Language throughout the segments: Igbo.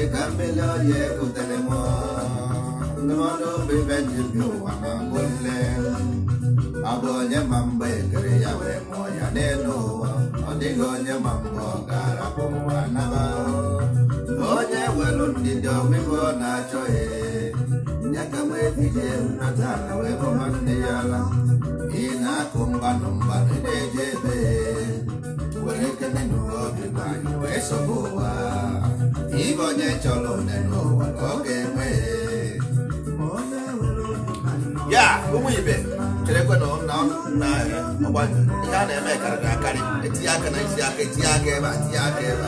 dịka mmeli ọya egotere m ndụmọdụ obi ibe ji bi ụwa ma mbụ nne abụ onye ma mgbe ekere ya wee mụọ ya n'elu ụwa ọ dịghị onye ma mgbe ọ ga-arapụ ụwa naba onye welu ndidi na-achọghị ya ka wee wee bụ nwanne ya na. ị na-akụ mgbanụ mgbanụ na-eje ebe obi wee ụwa ibe onye chọrọ onye n'ụwa ka ọ ga-enwe ya ụmụ ibe cherekwe na na ọgba ihe a na-eme karịrị akarị etinye aka na isi aka etinye aka ebe a tinye aka ebe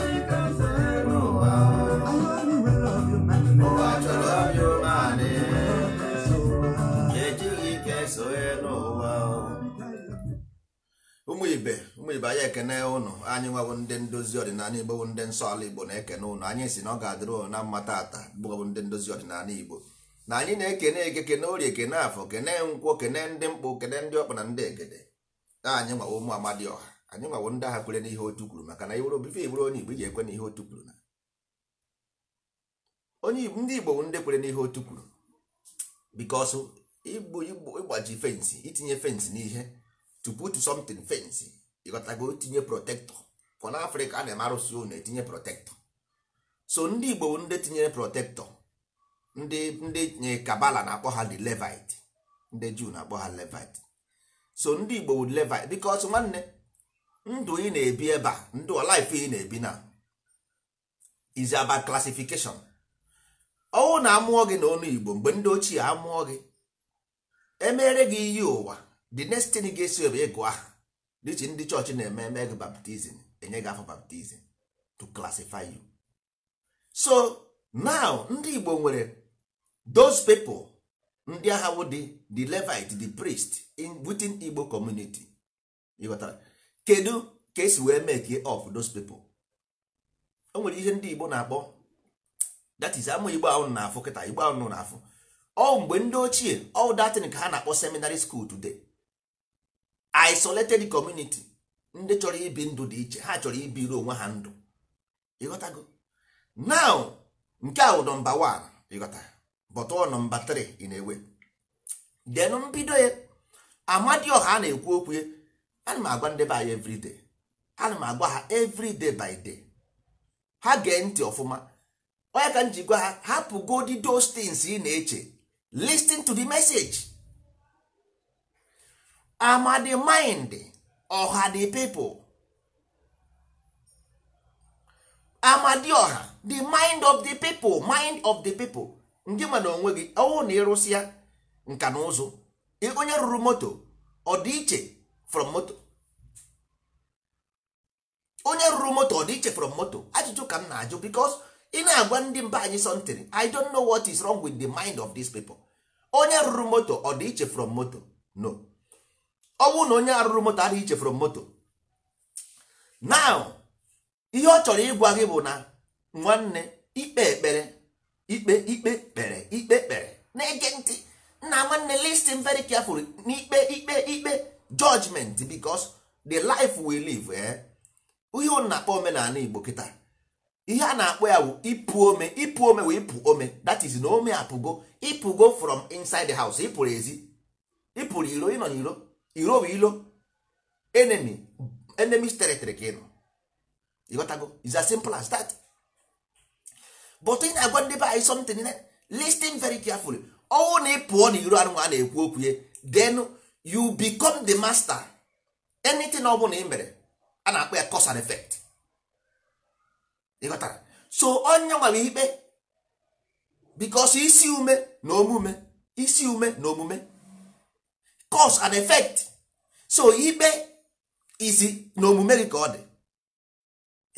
a ụmụ ibe mgbe anyị ekene ụnụ anyị nwebụ ndị ndozi ọdịnala igbo bụ ndị nsọ ala igbo na-ekene ụnụ anyị si na ọ ga-adịrụ na mmata ata bụbụ ndị ndozi ọdịnala igbo na anyị na-ekene eke kene orie kene afọ kene nkwọ kene ndị mkpụ kene ndị ọkpa na ndị egede na anyị nwawo ụmụ amadi ọha anyị nwawo ndị agha kwere n'ihe otu kwuru maka na iwere obife igburu onye igbo iji ekwe n'ihe otu kwuru na onye igbo ndị igbo bụ ndị kwere n'ihe otu kwuru bikọsụ igbo igbo ịgbaji fensị itinye fensị n'ihe to put something fensị ịghọtago tinye protektọ ka na afrịka a na-eme arụsị ụnụ etinye protector so ndị igbo bụ ndị tinyere protektọ ndị ndị nye kabala na-akpọ ha the levite ndị juu na-akpọ ha levite so ndị igbo bụ levite because nwanne ndụ ị na-ebi ebe a ndụ life ị na-ebi na is about classification ọnwụ na amụọ gị na ọnụ igbo mgbe ndị ochie amụọ gị emere gị iyi ụwa the next thing gị esi ebe ịgụ aha dịchi ndị chọọchị na-eme eme gị baptizim enye gị afọ baptizim to classify you so now ndị Igbo nwere those people ndị agha bụ the the Levite the priest in within Igbo community ịghọtara kedu ka esi wee make of those people o nwere ihe ndị Igbo na-akpọ that is Igbo ahụ na-afụ kịta Igbo ahụ na-afụ ọ mgbe ndị ochie ọ datin ka ha na-akpọ seminary school today isolated community ndị chọrọ ibi ndụ dị iche ha chọrọ ibiri onwe ha ndụ ịghọtago now nke a bụ nọmba 1 ịghọta bọtọ nọmba 3 ị na-ewe den mbido ya amadioha a na-ekwu okwu ya ana m agwa ndị be anyị ana m ha everyday by day ha gee ntị ọfụma onye ka m ji gwa ha hapụ godi those things ị na-eche listin to the message ama the mind ọha the people amadioha the mind of the people mind of the people ndị na onwe gị ọwụ na ịrụsịa nka na ụzụ onye rụrụ moto ọ iche from moto onye rụrụ moto ọ iche from moto ajụjụ ka m na-ajụ because ị na-agwa ndị mba anyị something i don't know what is wrong with the mind of these people onye rụrụ moto ọ iche from moto no ọ bụrụ na onye arụrụ moto adịghị ichefuru moto now ihe ọ chọrọ ịgwa gị bụ na nwanne ikpe ekpere ikpe ikpe kpere ikpe kpere na-ege ntị nna nwanne listen very carefully n'ikpe ikpe ikpe judgment bicos the life we live eh? ihe ọ na-akpọ omenala Igbo kịta ihe a na-akpọ ya wụ ịpụ ome ịpụ ome wee ịpụ ome that is na ome apụgo ịpụgo from inside the house ịpụrụ ezi ịpụrụ iro ịnọ n'iro iro bụ ilo enemy enemies territory ka ị nọ ịghọtago is as simple as that but ị na-agwa ndị be anyị something listing very carefully ọnwụ na ị pụọ na iro anụnwa na-ekwu okwu ye then you become the master anything ọ bụla ị mere a na-akpọ ya cause and effect ịghọtara so onye nwere ikpe because isi ume na omume isi ume na omume cause and effect so ikpe izi na omume gị ka ọ dị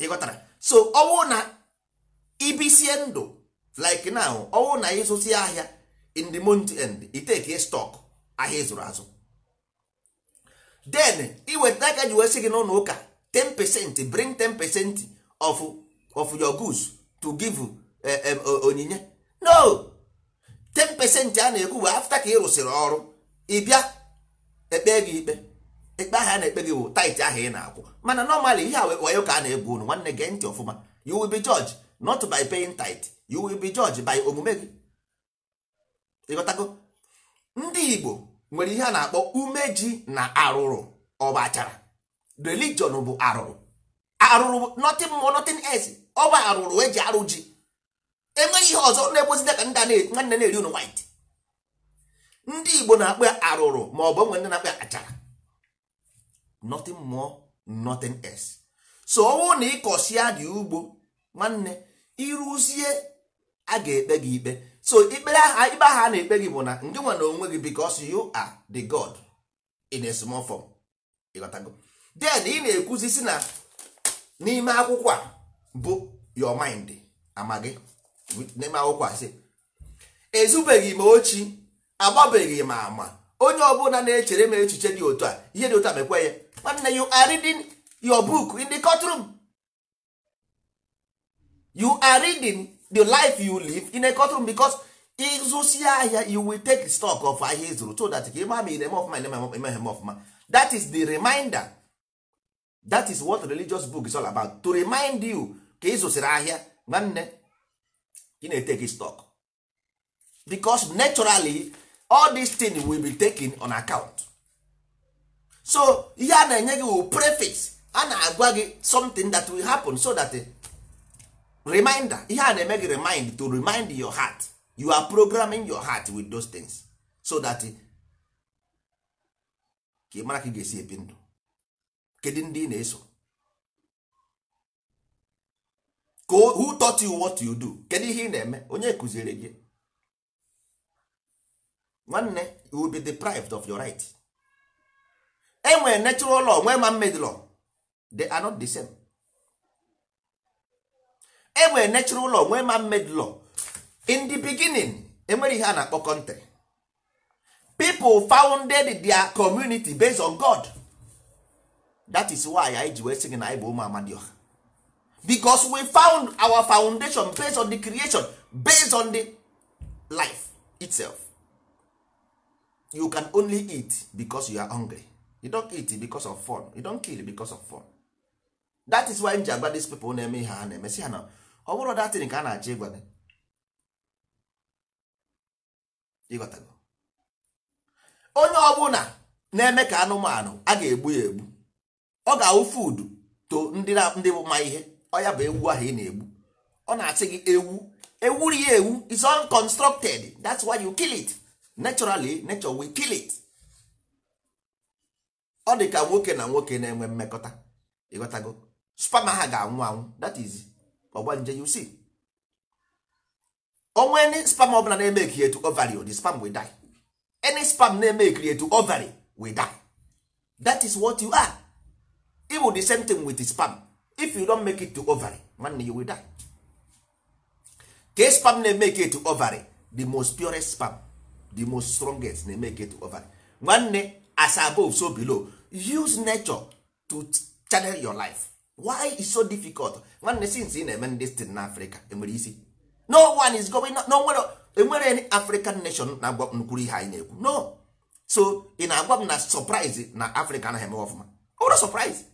ịghọtara so ọwụ na ibisie ndụ like now ọwụ na ịzụsi ahịa in the month end iteke stock ahịa ịzụrụ azụ then iweta aka ji wee gị n'ụlọ ụka 10 percent bring 10 percent of, of your goods to give eh, eh, onyinye no 10 percent a na-ekwu bụ afta ka ị rụsịrị ọrụ bịa. ekpe gị ikpe ikpe ahụ a na-ekpe gị bụ taịtị ahụ ị na-akwụ mana nọmalị ihe a wayo ka a na egbu unu nwanne gee ntị ọfụma you will be judged not by paying tithe you will be judged by omume gị ịghọtago ndị Igbo nwere ihe a na-akpọ umeji na arụrụ ọba achara religion bụ arụrụ arụrụ nothing more nothing else ọba arụrụ eji arụ ji enweghị ihe ọzọ na-egbozide ka ndị nwanne na-eri unu white ndị igbo na-akpọ arụrụ ma ọ bụ onwe ndị na-akpọ achara nothing more nothing else so ọ bụrụ na ịkọsịa dị ugbo nwanne ịrụzie a ga-ekpe gị ikpe so ikpere aha ikpe aha a na-ekpe gị bụ na ndị nwe na onwe gị because you are the god in a small form ịghọtago then ị na-ekwuzi si na n'ime akwụkwọ a bụ your mind amaghị n'ime akwụkwọ a sị ezubeghị m ochie. agbabeghị m ama onye ọbụla na-echere m echiche dị otu a ihe dị otu a mekwe ya nwanne you are reading your book in the courtroom you are reading the life you live in a courtroom because ịzụsi ahịa you will take stock of ahịa ịzụrụ so that ka ịma ma ire m ọfụma ime ha ọfụma that is the reminder that is what religious book is all about to remind you ka ịzụsiri ahịa nwanne ị na-eteki stock because naturally all these things will be taken on account so ihe a na-enye gị wụ preface a na-agwa gị something that will happen so that eh, reminder ihe a na-eme gị remind to remind your heart you are programming your heart with those things so that eh, ka ị mara ka ị ga-esi ebi ndụ kedu ndị ị na-eso who taught you what you do kedu ihe ị na-eme onye kụziere gị nwanne you will be deprived of your right enwe natural law nwee man made law they are not the same enwe natural law nwee man made law in the beginning enwere ihe a na-akpọ country people founded their community based on god that is why anyị ji wee na anyị bụ ụmụ Amadio because we found our foundation based on the creation based on the life itself you can only eat because you are hungry you don't eat because of fun you don't kill because of fun that is why m ji agwa these people na-eme ihe ha na-eme si ha na ọ bụrụ datin ka a na-achọ ịgwa onye ọbụla na-eme ka anụmanụ a ga-egbu ya egbu ọ ga-awụ food to ndị bụ ma ihe ọ ya bụ ewu ahụ ị na-egbu ọ na-asị gị ewu ewuri ya ewu is unconstructed that's why you kill it naturally nature will kill it ọ dị ka nwoke na nwoke na-enwe mmekọta ịghọtago spam ha ga-anwụ anwụ that is ọgbanje you see onwe any spam bụla na-eme ekiri etu ovary the spam will die any spam na-eme etu ovary will die that is what you are it will the same thing with the spam if you don't make it to ovary nwanne you will die ka spam na-eme etu ovary the most purest spam the most strongest na-eme get over nwanne as above so below use nature to channel your life why is so difficult nwanne since ị na-eme ndị stin na afrịka enwere isi no one is going no e any african nation na-agwa nkwuru ihe anyị na-ekwu no so ị na-agwa m na surprise na afrịka anaghị eme ọfụma ọbụrụ surprise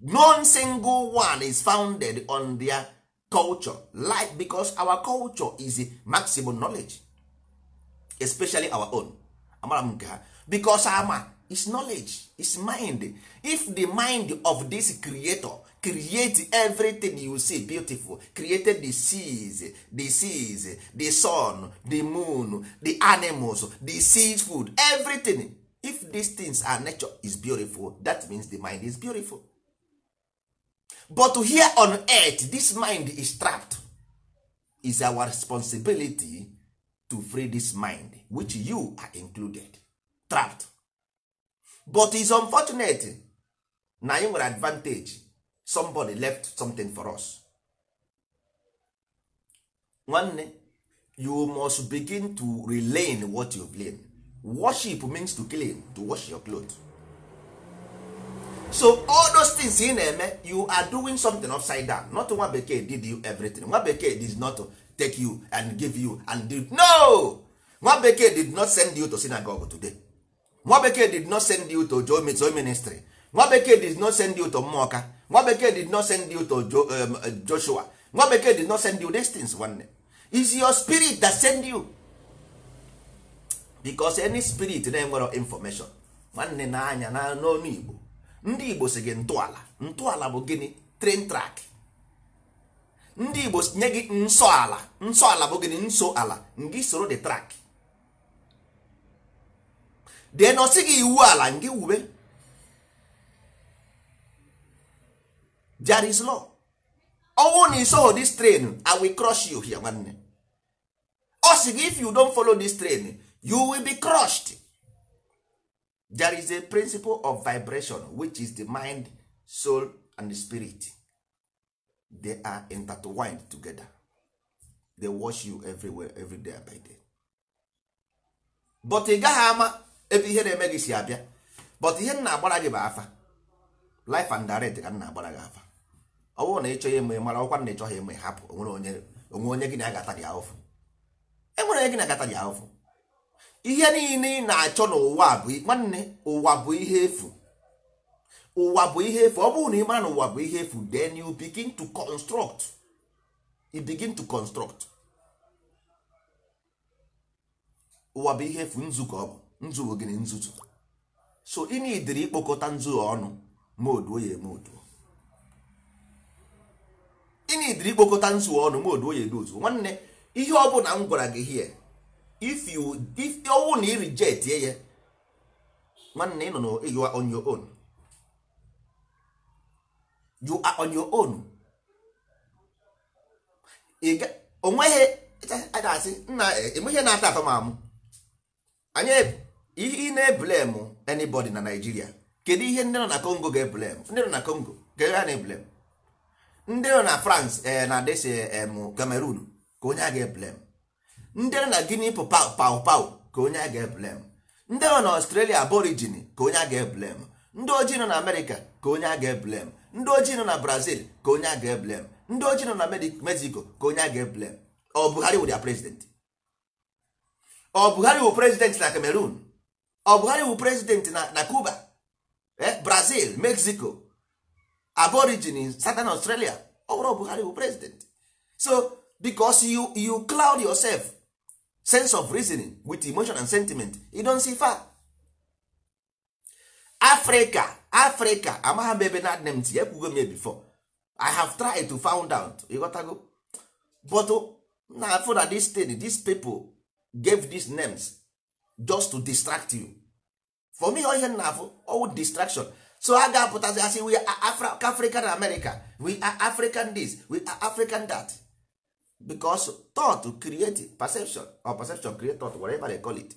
No single one is founded on their culture life because our culture is maximum knowledge especially our own amara m nke ha because ama is knowledge is mind if the mind of this creator create everything you see beautiful created the seas the seas the sun the moon the animals the sea food everything if these things are nature is beautiful that means the mind is beautiful but here on earth this mind is trapped is our responsibility to free this mind which you are included trapped but is unfortunate na anyị nwere advantage somebody left something for us nwanne you must begin to relearn what you learn worship means to clean to wash your cloth. so all those things ị na-eme you are doing something upside down not nwa bekee did you everything nwa bekee did not take you and give you and do no nwa bekee did not send you to synagogue today nwa bekee did not send you to joe ministry nwa bekee did not send you to mmụọka nwa bekee did not send you to um, uh, joshua nwa bekee did not send you these things day is your spirit that send you because any spirit na-enwero information nwanne na anya na n'ọnụ igbo ndị igbo si gị ntọala ntọala bụ gịnị train track ndị igbo nye gị nsọ ala ala bụ gịnị nso ala ngị soro the track dee na ọsị gị iwu ala ngị wube Jari's law ọnwụ na isoho dis train i will crush you here nwanne ọ sị gị if you don follow dis train you will be crushed there is a principle of vibration which is the mind soul and spirit they are intertwined together they wash you everywhere every day by day but ị gaghị ama ebe ihe na-eme gị si abịa but ihe nna agbara gị bụ afa life and direct ka nna agbara gị afa ọ bụrụ na ị chọghị eme mara ọkwa na ị chọghị eme hapụ onwere onye gị na agata gị ahụfụ enwere onye gị na agata gị ahụfụ ihe niile ị na-achọ n'ụwa bụ nwanne ụwa bụ ihe efu ụwa bụ ihe efu ọ bụrụ na ị mara na ụwa bụ ihe efu then you begin to construct ụwa bụ ihe efu nzu ọ bụ gịnị nzuzu so ị ikpokọta nzu ọnụ ma ya ikpokọta ọnụ ma ya nwanne ihe ọ bụla m gwara gị hie if na ị ya nwanne nọ na you are on your own onweghị na-asị nna enweghị e na-ata afọ mamụ anyị e, ị na-eblem anybody na Naịjirịa kedu ihe ndị nọ na Congo ga-eblem ndị nọ na Congo ga-ewe na-eblem ndị nọ na France e, na desi Cameroon ka onye a ga-eblem ndị nọ na Guinea pau pau ka onye a ga-eblem ndị nọ na Australia aborigine ka onye a ga-eblem ndị ojii nọ na Amerịka ka onye a ga-eblem ndị ojii nọ na brazil ka onye a ga-eblem ndị ojii nọ na mexico ka onye a ga-eblem ọ buhari wụ dia prezident ọ buhari wụ prezident na cameroon ọ buhari wụ prezident na cuba eh, brazil mexico aborigin southern australia ọ bụrụ buhari wụ prezident so because you you cloud yourself sense of reasoning with emotion and sentiment you don see far Africa Africa amagha m ebe na adịna m tinye m before i have tried to found out ịghọtago but oh, na afọ na this thing these people gave these names just to distract you for me ihe na afọ ow distraction so a ga-apụtazi say we are african america we are african this we are african that because thought create perception or perception create thought whatever they call it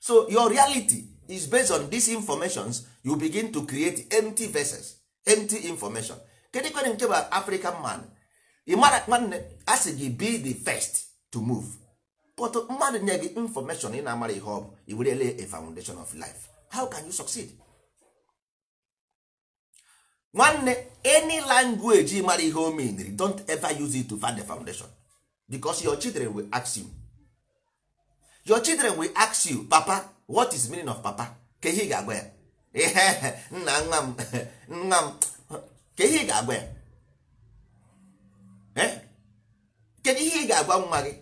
so your reality is based on these informations you begin to create empty vessels empty information kedu kwere nke bụ african man ịmara nwanne a gị be the first to move but mmadụ nye gị information ị na-amara ihe ọ bụ iwerele a foundation of life how can you succeed nwanne any language mara ihe o meniri don't ever use it to find the foundation because your children will ask you your children will ask you papa what is meaning of papa ka ihe ị ga-agwa ya ihe nna nwa m nna m ka ihe ị ga-agwa ya eh? kedu ihe ị ga-agwa nwa gị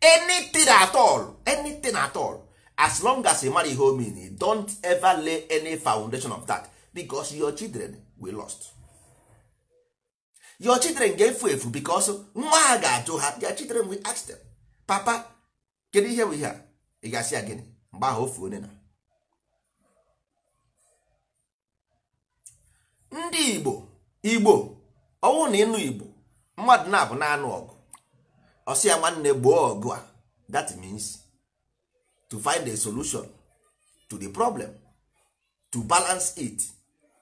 anything at all anything at all as long as you marry ihe omen don't ever lay any foundation of that because your children will lost your children ga-efu efu because nwa ha ga-ajụ ha their children will ask them papa kedu ihe bụ ihe a ị ga-asị ya gịnị mgbe ahụ ofu onye na ndị igbo igbo ọnwụ na ịnụ igbo mmadụ na-abụ na ọgụ ọsị ya nwanne gboo ọgụ a that means to find a solution to the problem to balance it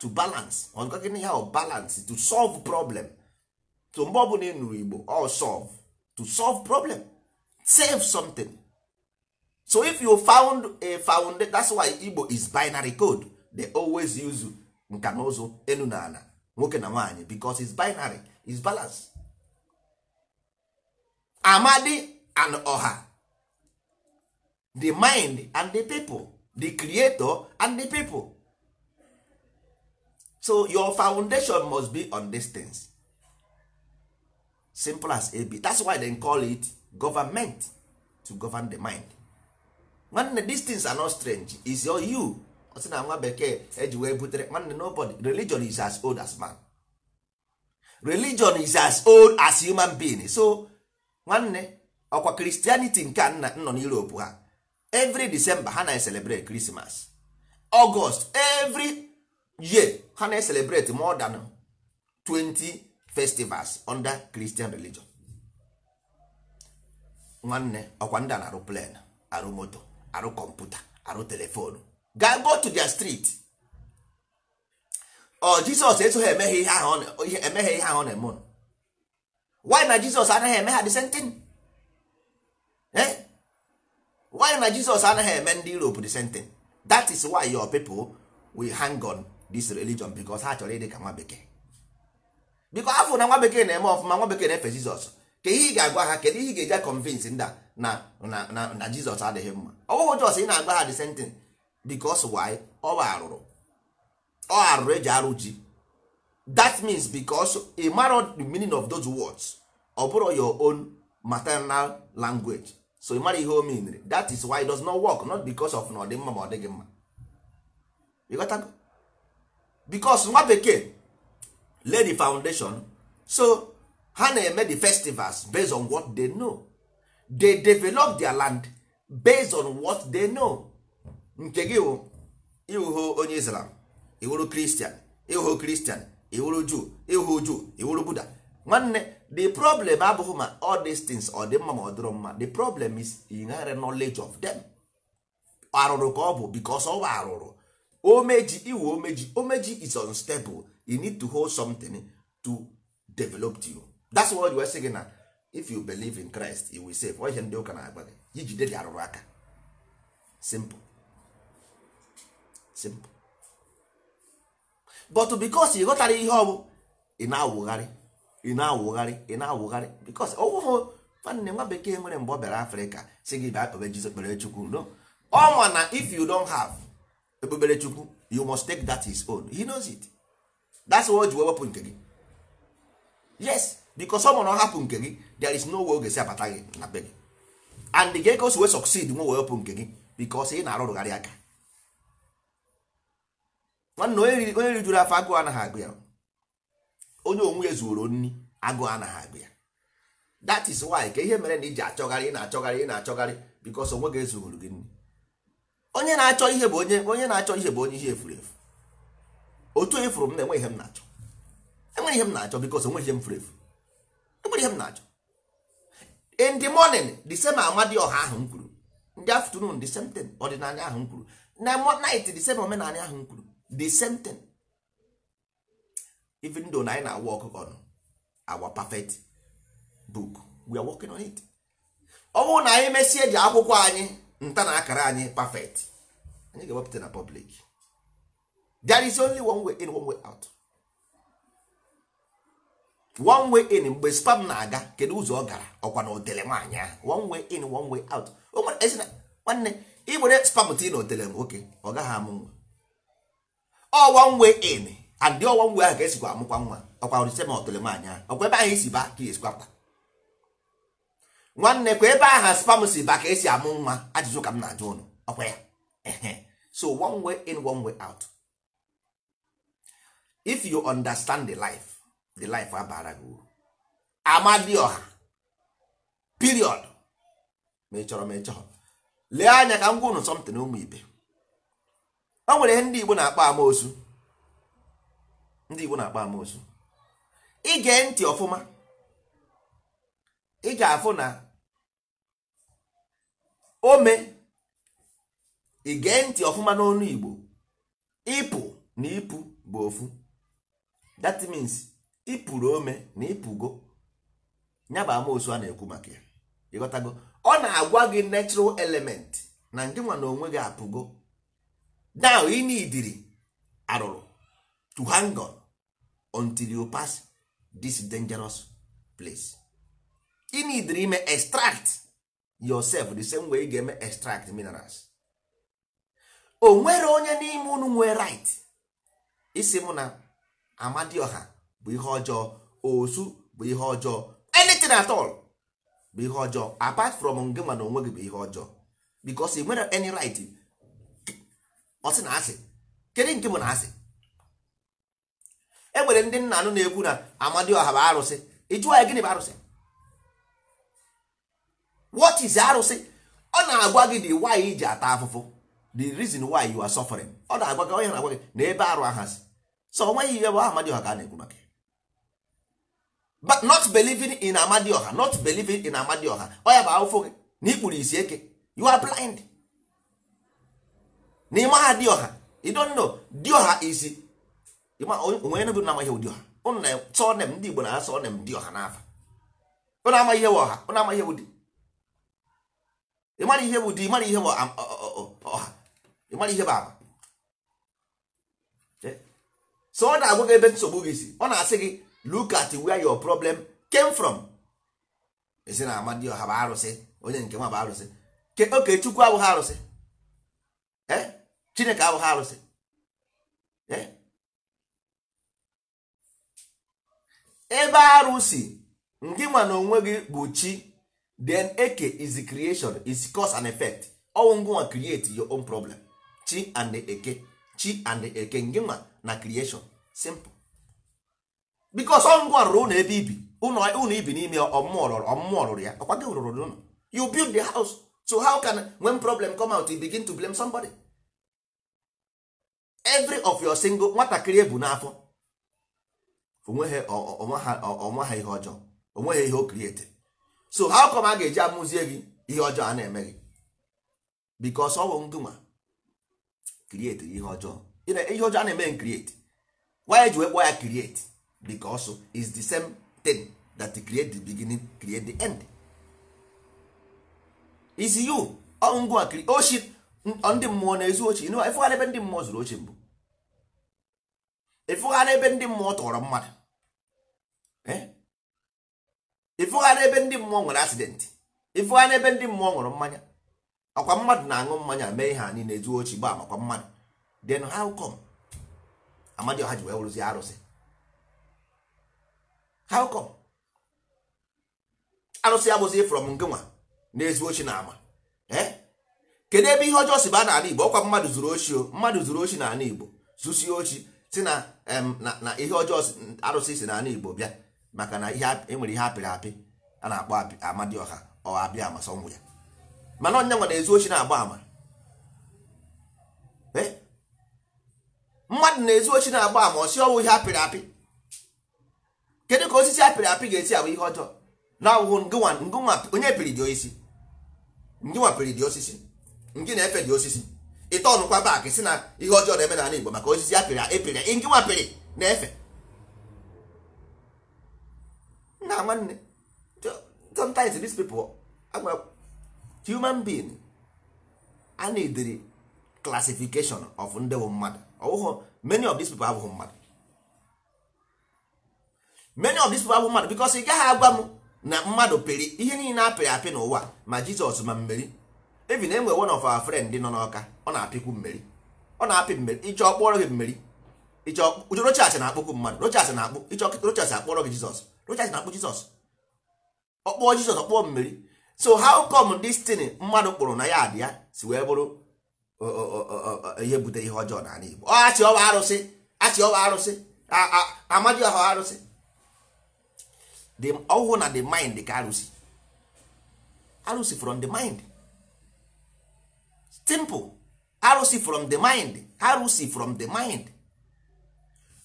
to balance ọgụgịnị ya balance to solve problem to mgbe ọbụla ị igbo ọ solve to solve problem save something so if you found a found that's why igbo is binary code they always use nka na ụzụ elu na ala nwoke na nwaanyị because it's binary it's balance amadi and Oha. the mind and the people the creator and the people so your foundation must be on these things simple as ab that's why they call it government to govern the mind nwanne distins things are not strange is your you ọsị na nwa bekee eji wee butere nwanne nobody religion is as old as man religion is as old as human being so nwanne ọkwa christianity nke a nna nọ n'europe ha every december ha na-celebrate christmas august every year ha na-celebrate more than 20 festivals under christian religion nwanne ọkwa ndị a na-arụ plan arụ moto arụ kọmputa arụ telefonu Ga go to their street ọ oh, jizọs esoghị emeghe ihe ahụ emeghe ihe ahụ na-eme ụnụ na jizọs anaghị eme ha the same thing eh? Why na jizọs anaghị eme ndị europe the same thing that is why your people will hang on this religion because ha chọrọ ịdị ka nwa bekee biko afọ na nwa bekee na-eme ọfụma nwa bekee na-efe jizọs ka ị ga-agwa ha kedu ihe ị ga-eje convince ndị na na jizọs adịghị mma ọ jọs ị na-agwa ha the same thing because why ọ arụrụ ọ arụrụ eji arụ ji that means because a mara the meaning of those words ọ bụrụ your own maternal language so ị mara ihe o meanere that is why it does not work not becos of na ọ dị mma ma ọ dịghị mma because nwa bekee lay the foundation so ha na-eme the festivals based on what they know they develop their land based on what they know nke gị bụ ịwụhụ onye islam iwụrụ kristian ịwụhụ kristian iwụrụ juu ịwụhụ juu iwụrụ buda nwanne the problem abụghị ma all these things ọ dị mma ma ọ dịrọ mma the problem is inherent knowledge of them arụrụ ka ọ bụ because ọ bụ arụrụ omeji iwu omeji omeji is unstable you need to hold something to develop you that's why ji wee sị na if you believe in Christ you will save ihe ndị ụka na-agba gị ijide dị arụrụ aka simple simple but because ị ghọtara ihe ọ bụ ị na-awụgharị ị na-awụgharị ị na-awụgharị because ọwụhụ nwanne nwa bekee nwere mgbe ọ bịara Afrịka si gị bịa kpebe Jizọs kpere Chukwu no ọ ma na if you don't have ekpebere Chukwu you must take that his own he knows it that's why o wepụ nke gị yes because ọ bụrụ na ọ hapụ nke gị there is no way oge si abata gị na be gị and gị ka o si wee succeed nwe wee hapụ nke gị because ị na-arụrụgharị aka nwanne onye rijuru afọ agụụ anaghị agụ ya onye onwe ya zuoro nri agụụ anaghị agụ ya that is why ka ihe mere na iji achọgharị ị na-achọgharị ị na-achọgharị because onwe gị ezuoro gị nri onye na-achọ ihe bụ onye onye na-achọ ihe bụ onye ihe efuru efu otu onye furu m na enwe ihe m na-achọ enwe ihe m na-achọ because onwe ihe m furu efu nwere ihe m na-achọ in the morning the same ọha ahụ m kwuru in afternoon the same thing ọdịnala ahụ m kwuru na night the same omenala ahụ m kwuru the same thing even though na anyị na-awa ọkụkọ ọnụ our perfect book we are working on it ọ bụrụ na anyị mesie ji akwụkwọ anyị nta na akara anyị perfect anyị ga-ewepụta na public there is only one way in one way out one way in mgbe spam na-aga kedu ụzọ ọ gara ọkwa na otele nwaanyị ahụ one way in one way out nwanne ị were spam ti na otele nwoke ọ gaghị amụ nwa ọ one way in and dị ọwa mgbe ahụ ka esikwa amụkwa nwa ọkwa risem otele nwaanyị ahụ ọkwa ebe ahụ esi ba ka esikwa pụta nwanne kwa ebe aha spam si ba ka esi amụ nwa ajụjụ ka m na-ajụ ụnụ ọkwa ya so one way in one way out if you understand the life the life abara gị uru ọha. period ma ị chọrọ ma ị chọrọ lee anya ka m gwa unu ụmụ ibe o nwere ihe ndị Igbo na-akpọ amoosu ndị Igbo na-akpọ amoosu ige ntị ọfụma ị ga-afụ na ome ige ntị ọfụma n'ọnụ Igbo ịpụ na ịpụ bụ ofu that means ịpụrụ ome na ịpụgo nyaba bụ amaosu a na-ekwu maka ya ịghọtago ọ na-agwa gị natural element na ndị nwa na onwe gị apụgo now ị nidiri arụrụ to hang on until you pass this dangerous place ị nidiri ime extract yourself the same way ị ga-eme extract minerals o nwere onye n'ime unu nwee right isi mụ na amadioha bụ ihe ọjọọ osu bụ ihe ọjọọ anything at all bụ ihe ọjọọ apart from nge ma na onwe gị bụ ihe ọjọọ because ị nwere any right ọsị na asị kedu nke bụ na asị e nwere ndị nna anụ na-ekwu na ọha bụ arụsị ịjụọ ya gịnị bụ arụsị what is arụsị ọ na-agwa gị the why iji ata afụfụ the reason why you are suffering ọ na-agwa gị onye na-agwa gị na ebe arụ ahasị so onweghị ihe bụ ọha ka a na-ekwu maka but not believing in amadioha not believing in amadioha ọ ya bụ afụfụ gị na ikpuru isi eke you are blind na ịma ha dioha you don't know dioha is onwe bụ na amaghị ụdị ọha sọ nem ndị igbo na asọ nem dioha n'afa ụna amaghị ihe ọha ụna amaghị ihe ụdị ịmara ihe bụ ụdị ịmara ihe bụ ọha ịmara ihe bụ agba um, so ọ na-agwa gị ebe nsogbu gị si ọ na-asị gị look at where your problem came from esi na amadioha bụ arụsị onye nke nwa bụ arụsị oke chukwu abụghị arụsị eh? chineke abụghị arụsị eh? ebe arụsị ndị na onwe gị bụ chi then eke is creation is cause and effect ọnwụ ngụnwa create your own problem chi and eke chi and eke ngịnwa na creation simple because ọngwa rụrụ ụlọ ebe ibi ụlọ ibi n'ime ọmụmụ ọrụrụ ya ọkwa gị rụrụ n'ụlọ you build the house so how can when problem come out you begin to blame somebody every of your single nwatakịrị ebu n'afọ onwe ha ihe ọjọọ onwe ihe o create so how come a ga-eji amụzie gị ihe ọjọọ a na-eme gị because ọ bụ ngịnwa ihe ọjọọ ihe ọjọọ a na-eme create why eji wekpọ ya create because is the same thing that create the beginning create the end is you ngwa ochi ndị mmụọ na-ezu ochi ịfụghara ebe ndị mmụọ zuru ochi mbụ ịfụghara ebe ndị mmụọ tọrọ mmadụ ịfụghara ebe ndị mmụọ nwere asidenti ịfụghara ebe ndị mmụọ nwere mmanya ọkwa mmadụ na-aṅụ mmanya mee ihe anyị na-ezu ochi gbaa makwa mmadụ then how come amadioha ji wee wụrụzi arụsị how come arụsị ya bụzi from ngịnwa na ezi ochi na ama eh? kedu ebe ihe ọjọọ si ba n'ala igbo ọkwa mmadụ zuru ochi o mmadụ zuru ochi n'ala igbo zusie ochi si na na ihe ọjọọ arụsị si n'ala igbo bịa maka na enwere ihe apịrị e apị a na-akpọ ọha ọ abịa amasọngwụ ya mana ọnya nwa na ezi ochi na-agba ama eh? mmadụ na ezi ochi na-agba ama ọ si ọwụ ihe apịrị apị kedu ka osisi apịrị apị ga-esi abụ ihe ọjọọ na ọwụwụ onye pịrị dị osisi ngịnwa pịrị dị osisi ngị na-efe dị osisi ịta ọnụkwa baakị si na ihe ọjọọ na-eme n'ala Igbo maka osisi apịrị epịrị ngịnwa pịrị na-efe nna nwanne sometimes these people agba human being a na-edere classification of ndị bụ mmadụ ọwụghụ many of these people abụghị mmadụ many of these people mmadụ because ị gaghị agwa m na mmadụ peri ihe niile apịrị apị n'ụwa ma jizọs ma mmeri ebi na enwe one of our friend nọ n'ọka ọ na-apịkwu mmeri ọ na-apị mmeri ịchọ kpọrọ gị mmeri ịchọ rochas na-akpọkwu mmadụ rochas na akpụ ịchọ rochas akpọrọ gị jizọs rochas na-akpọ jizọs ọkpọọ jizọs ọkpọọ mmeri so how come this thing mmadụ kpụrụ na ya dị ya si wee bụrụ ihe butere ihe ọjọọ n'ala igbo ọ achị ọwa arụsị achị ọwa arụsị amadioha arụsị the ọhụụ na the mind ka arụsị arụsị from the mind simple arụsị from the mind arụsị from the mind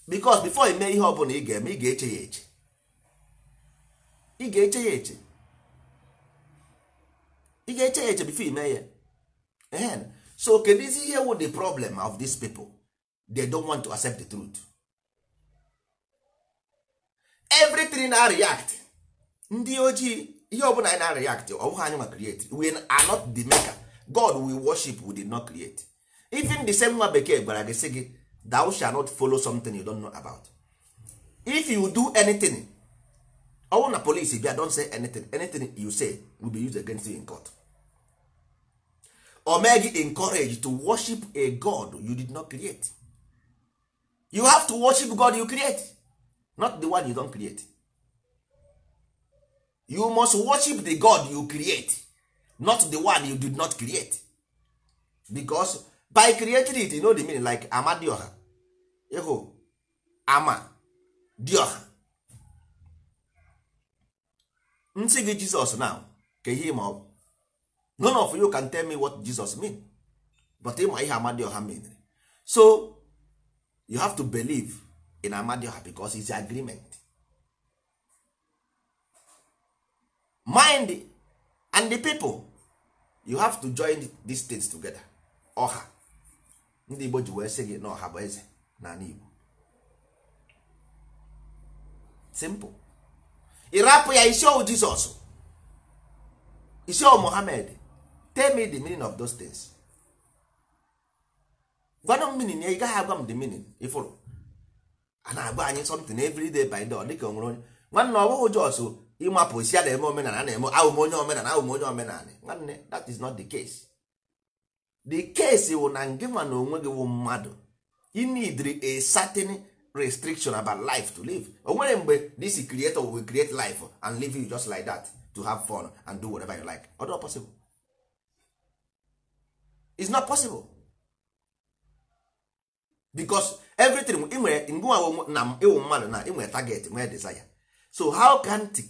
because before ime ihe ọbụla ị ga-eme ị ga-eche ya eche ị ga-eche ya eche ị ga ime ya so kedu ihe wụ the problem of dis people they don't want to accept the truth everything na react ndị ojii ihe ọbụla anyị na react ọ anyị ma create we are not the maker god we worship we did not create even the same nwa bekee gwara gị sị gị thou shall not follow something you don't know about if you do anything ọ na police bịa don say anything anything you say will be used against you in court o mee gị encourage to worship a god you did not create you have to worship god you create not the one you don't create you must worship the god you create not the one you did not create because by creating it you know the meaning like amadioha ịhụ ama dioha nsị gị jesus now ka ihe ma ọ none of you can tell me what jesus mean but ịma ihe amadioha mean so you have to believe ị na-amadioha because it's agreement mind and the people you have to join these things together ọha ndị Igbo ji wee sị gị na ọha bụ eze n'ala Igbo simple ịrapụ ya isi ọwụ Jizọs isi ọwụ Mohammed tell me the meaning of those things gwanụ m meaning ya ị gaghị agwa m the meaning ifụrụ a na-agba anyị something every day by day dịka onwere onye nwanne ọ bụghị jos ịmapụ si a na-eme omenala na-eme ahụm onye omenala ahụm onye omenala nwanne that is not the case the case wụ na nke ma na onwe gị wụ mmadụ you need a certain restriction about life to live o nwere mgbe this creator will create life and live you just like that to have fun and do whatever you like ọ possible it's not possible because everything ị nwere na ịwụ mmadụ na enwe taget target nwee desire so how can the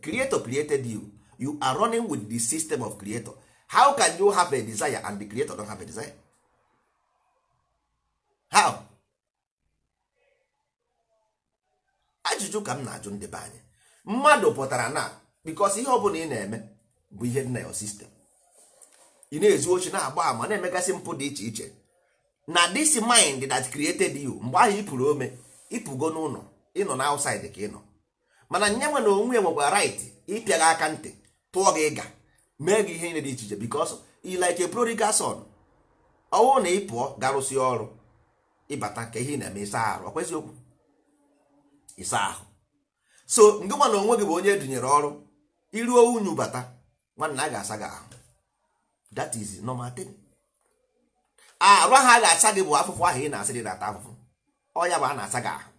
creator created you you are running with the system of creator how can you have a desire and the creator don't have a desire how ajụjụ ka m na-ajụ ndị be anyị mmadụ pụtara na because ihe ọ bụla ị na-eme bụ ihe dị na your sistem ị na-ezu ochi na-agba ama na-emegasị mpụ dị iche iche na this mind that created you mgbe ahụ ịpụrụ ome ịpụgo n'ụlọ ịnọ na outside ka ịnọ mana nye nwe na onwe nwekwa right ịpịa aka ntị tụọ gị ịga mee gị ihe niile dị iche iche because you like a son ọwụ na ịpụọ pụọ ọrụ ịbata ka ihe na-eme ịsa ahụ ọkwezi okwu ịsa ahụ so ndị nwa na onwe gị bụ onye edunyere ọrụ iruo unyu bata nwanna a ga-asa gị ahụ that is normal thing arụ ahụ a ga-asa gị bụ afụfụ ahụ ị na-asị dị na-ata afụfụ ọ ya bụ a na-asa gị ahụ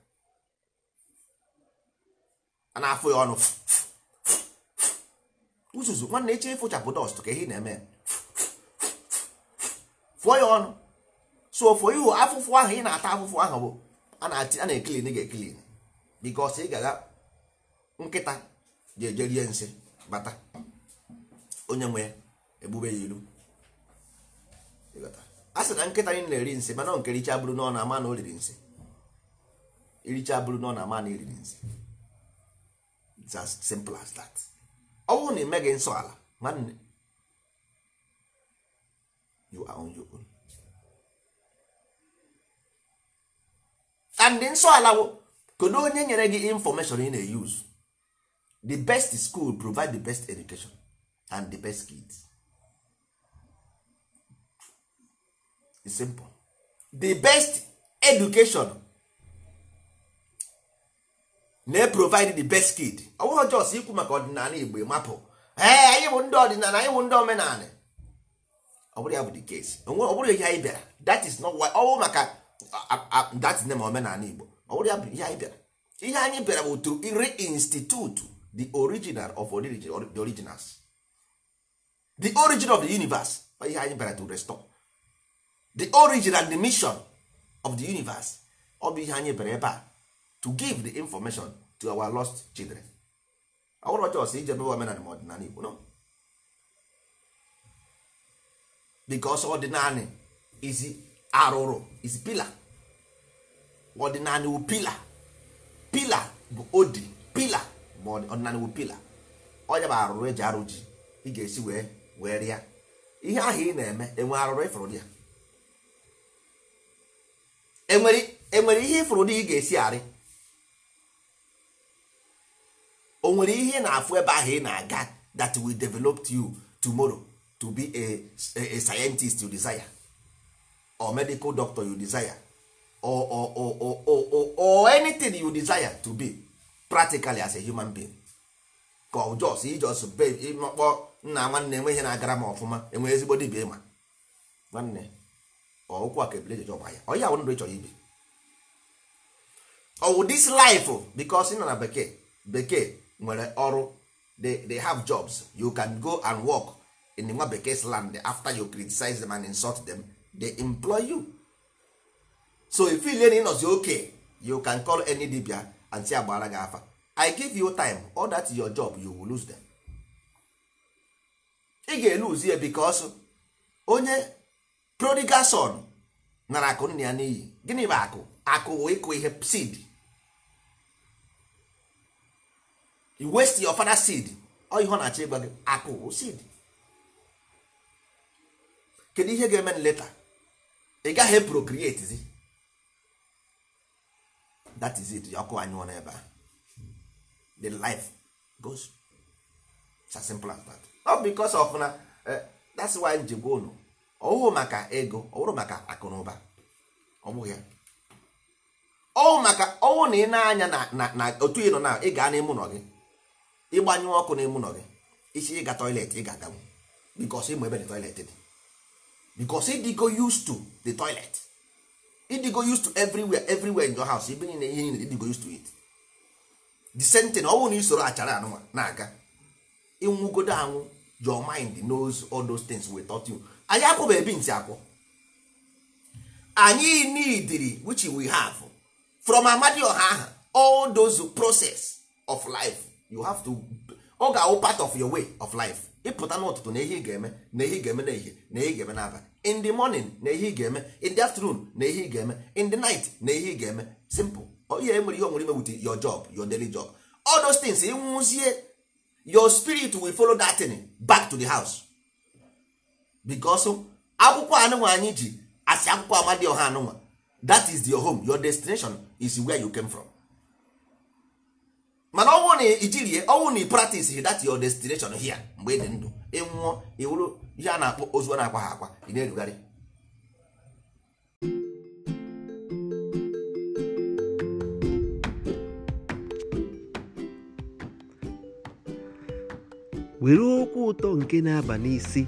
a na-afụ ya ọnụ uzuzu nwanne eche ịfụchapụ dọst ka ihe na-eme fụọ ya ọnụ so fụọ ihu afụfụ ahụ ị na-ata afụfụ ahụ bụ a na-ekilin ga-ekilin bikos ị ga nkịta ji eje nsị bata onye nwe ya ebube ya ilu a sị na nkịta anyị na-eri nsị mana nke richa bụrụ na ọ na-ama na o riri nsị iricha bụrụ na ọ na-ama na iriri nsị it's as simple as that ọ bụrụ na ị meghị nsọ ala nwanne nsọ ala wụ kedu onye nyere gị information ị na-use the best school provide the best education and the best kids. It's simple. The best education na-provide e the best kid. Ọ bụghị jos ikwu maka ọdịnala Igbo mapụ ee anyị bụ ndị ọdịnala anyị bụ ndị omenala ọ bụrụ ya bụ the case ọ bụrụ ihe anyị bịara that is not why ọ maka that is name omenala Igbo ọ bụrụ ya bụ ihe anyị bịara ihe anyị bịara bụ to reinstitute the original of the originals the origin of the universe ihe anyị bịara to restore the origin and the mission of the universe ọ bụ ihe anyị bere ebe a to give the information to our lost children ọwụrụ ọjọọ ije ebe omenala ma ọdịnala igbo no because ọdịnala is arụrụ is pila ọdịnala wu pila pila bụ odi pila ma ọdịnala wu pila ọnya bụ arụrụ eji arụ ji ị ga-esi wee wee rịa ihe ahụ ị na-eme enwe arụrụ ịfụrụ e ya enwere ihe ịfụrụ na ị ga-esi arị o nwere ihe na-afụ ebe ahụ ị na-aga that will develop you tomorrow to be a, scientist you desire or medical doctor you desire or, or, or, or, or, or, anything you desire to be practically as a human being ka ọ jos ijos be ịmakpọ nna nwanne enweghị na-agara m ọfụma enwe ezigbo dibia ịma nwanne ọụkwụ a ka ebule ejeje ọgba ya ọ ya ndụ ị chọrọ ibi ọwụ this life oh, because ị nọ na bekee bekee nwere ọrụ they have jobs you can go and work in nwa bekee land after you criticize them and insult them they employ you so if you learn ịnọzi okay you can call any dibia and say agbara gị afa i give you time all that is your job you will lose them ị ga-eluzi ya because onye prodigal son nara akụ nna ya n'iyi gịnị bụ akụ akụ wụ ịkụ ihe seed you waste your father seed ọ ihe ọ na-achọ ịgba gị akụ wụ seed kedu ihe ga-eme leta ị gaghị procreate zi that is it ọkụ anyụọ n'ebe a the life goes it's as simple as that not because of na eh, that's why njegwa unu ọwụ maka ego ọ maka akụnụba ọ ọwụ maka ọwụ na ị na-anya na otu ị nọ na ị gaa n'ime nọ gị ịgbanyụ ọkụ n'ime nọ gị isi ịga toilet ị ga-aganwu bikos ịmụ ebe the toilet dị bikos ịdịgo the toilet ịdịgo everywhere everywhere in your house ibe niile ihe niile ịdịgo it the same thing ọwụ na isoro achara anụnwa na-aga ịnwụgodo anwụ your anyị akwụba ebi ntị akwụ anyị neediri which we have from amadi ọha aha all those process of life you have to ọ ga-awụ part of your way of life ịpụta n'ụtụtụ na ihe ị ga-eme na ihe ị ga-eme na ihe na ihe ị ga-eme n'abalị in the morning na ihe ị ga-eme in the afternoon na ihe ị ga-eme in the night na ihe ị ga-eme simple ihe nwere ihe onwere ime with your job your daily job all those things ị ịnwụzie your spirit will follow that thing back to the house bikos akwụkwọ anụnwa anyị ji asị akwụkwọ ọha anụnwa that is your home your destination is where you came from mana ọnwụ na ijirie ọnwụ na dat that your destination here mgbe ị dị ndụ ịnwụọ iwuru ihe a na-akpọ ozu na-akwa ha akwa ị na-erugharị were okwu ụtọ nke na-aba n'isi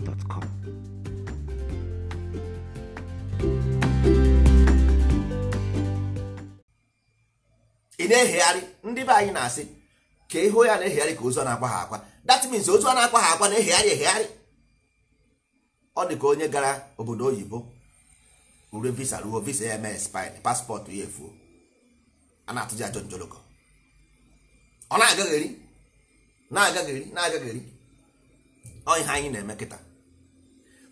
ị na-ehegharị ndị be anyị na-asị ka ịhụ ya na-ehegharị ka ozu na-akwa ha akwa that means ozu a na-akwa ha akwa na-ehegharị ehegharị ọ dị ka onye gara obodo oyibo ure visa ruo visa ya mee spin paspọtụ ya efuo a na-atụji ajọ njolokọ ọ na-agagheri na-agagheri na-agagheri ọ ihe anyị na-eme kịta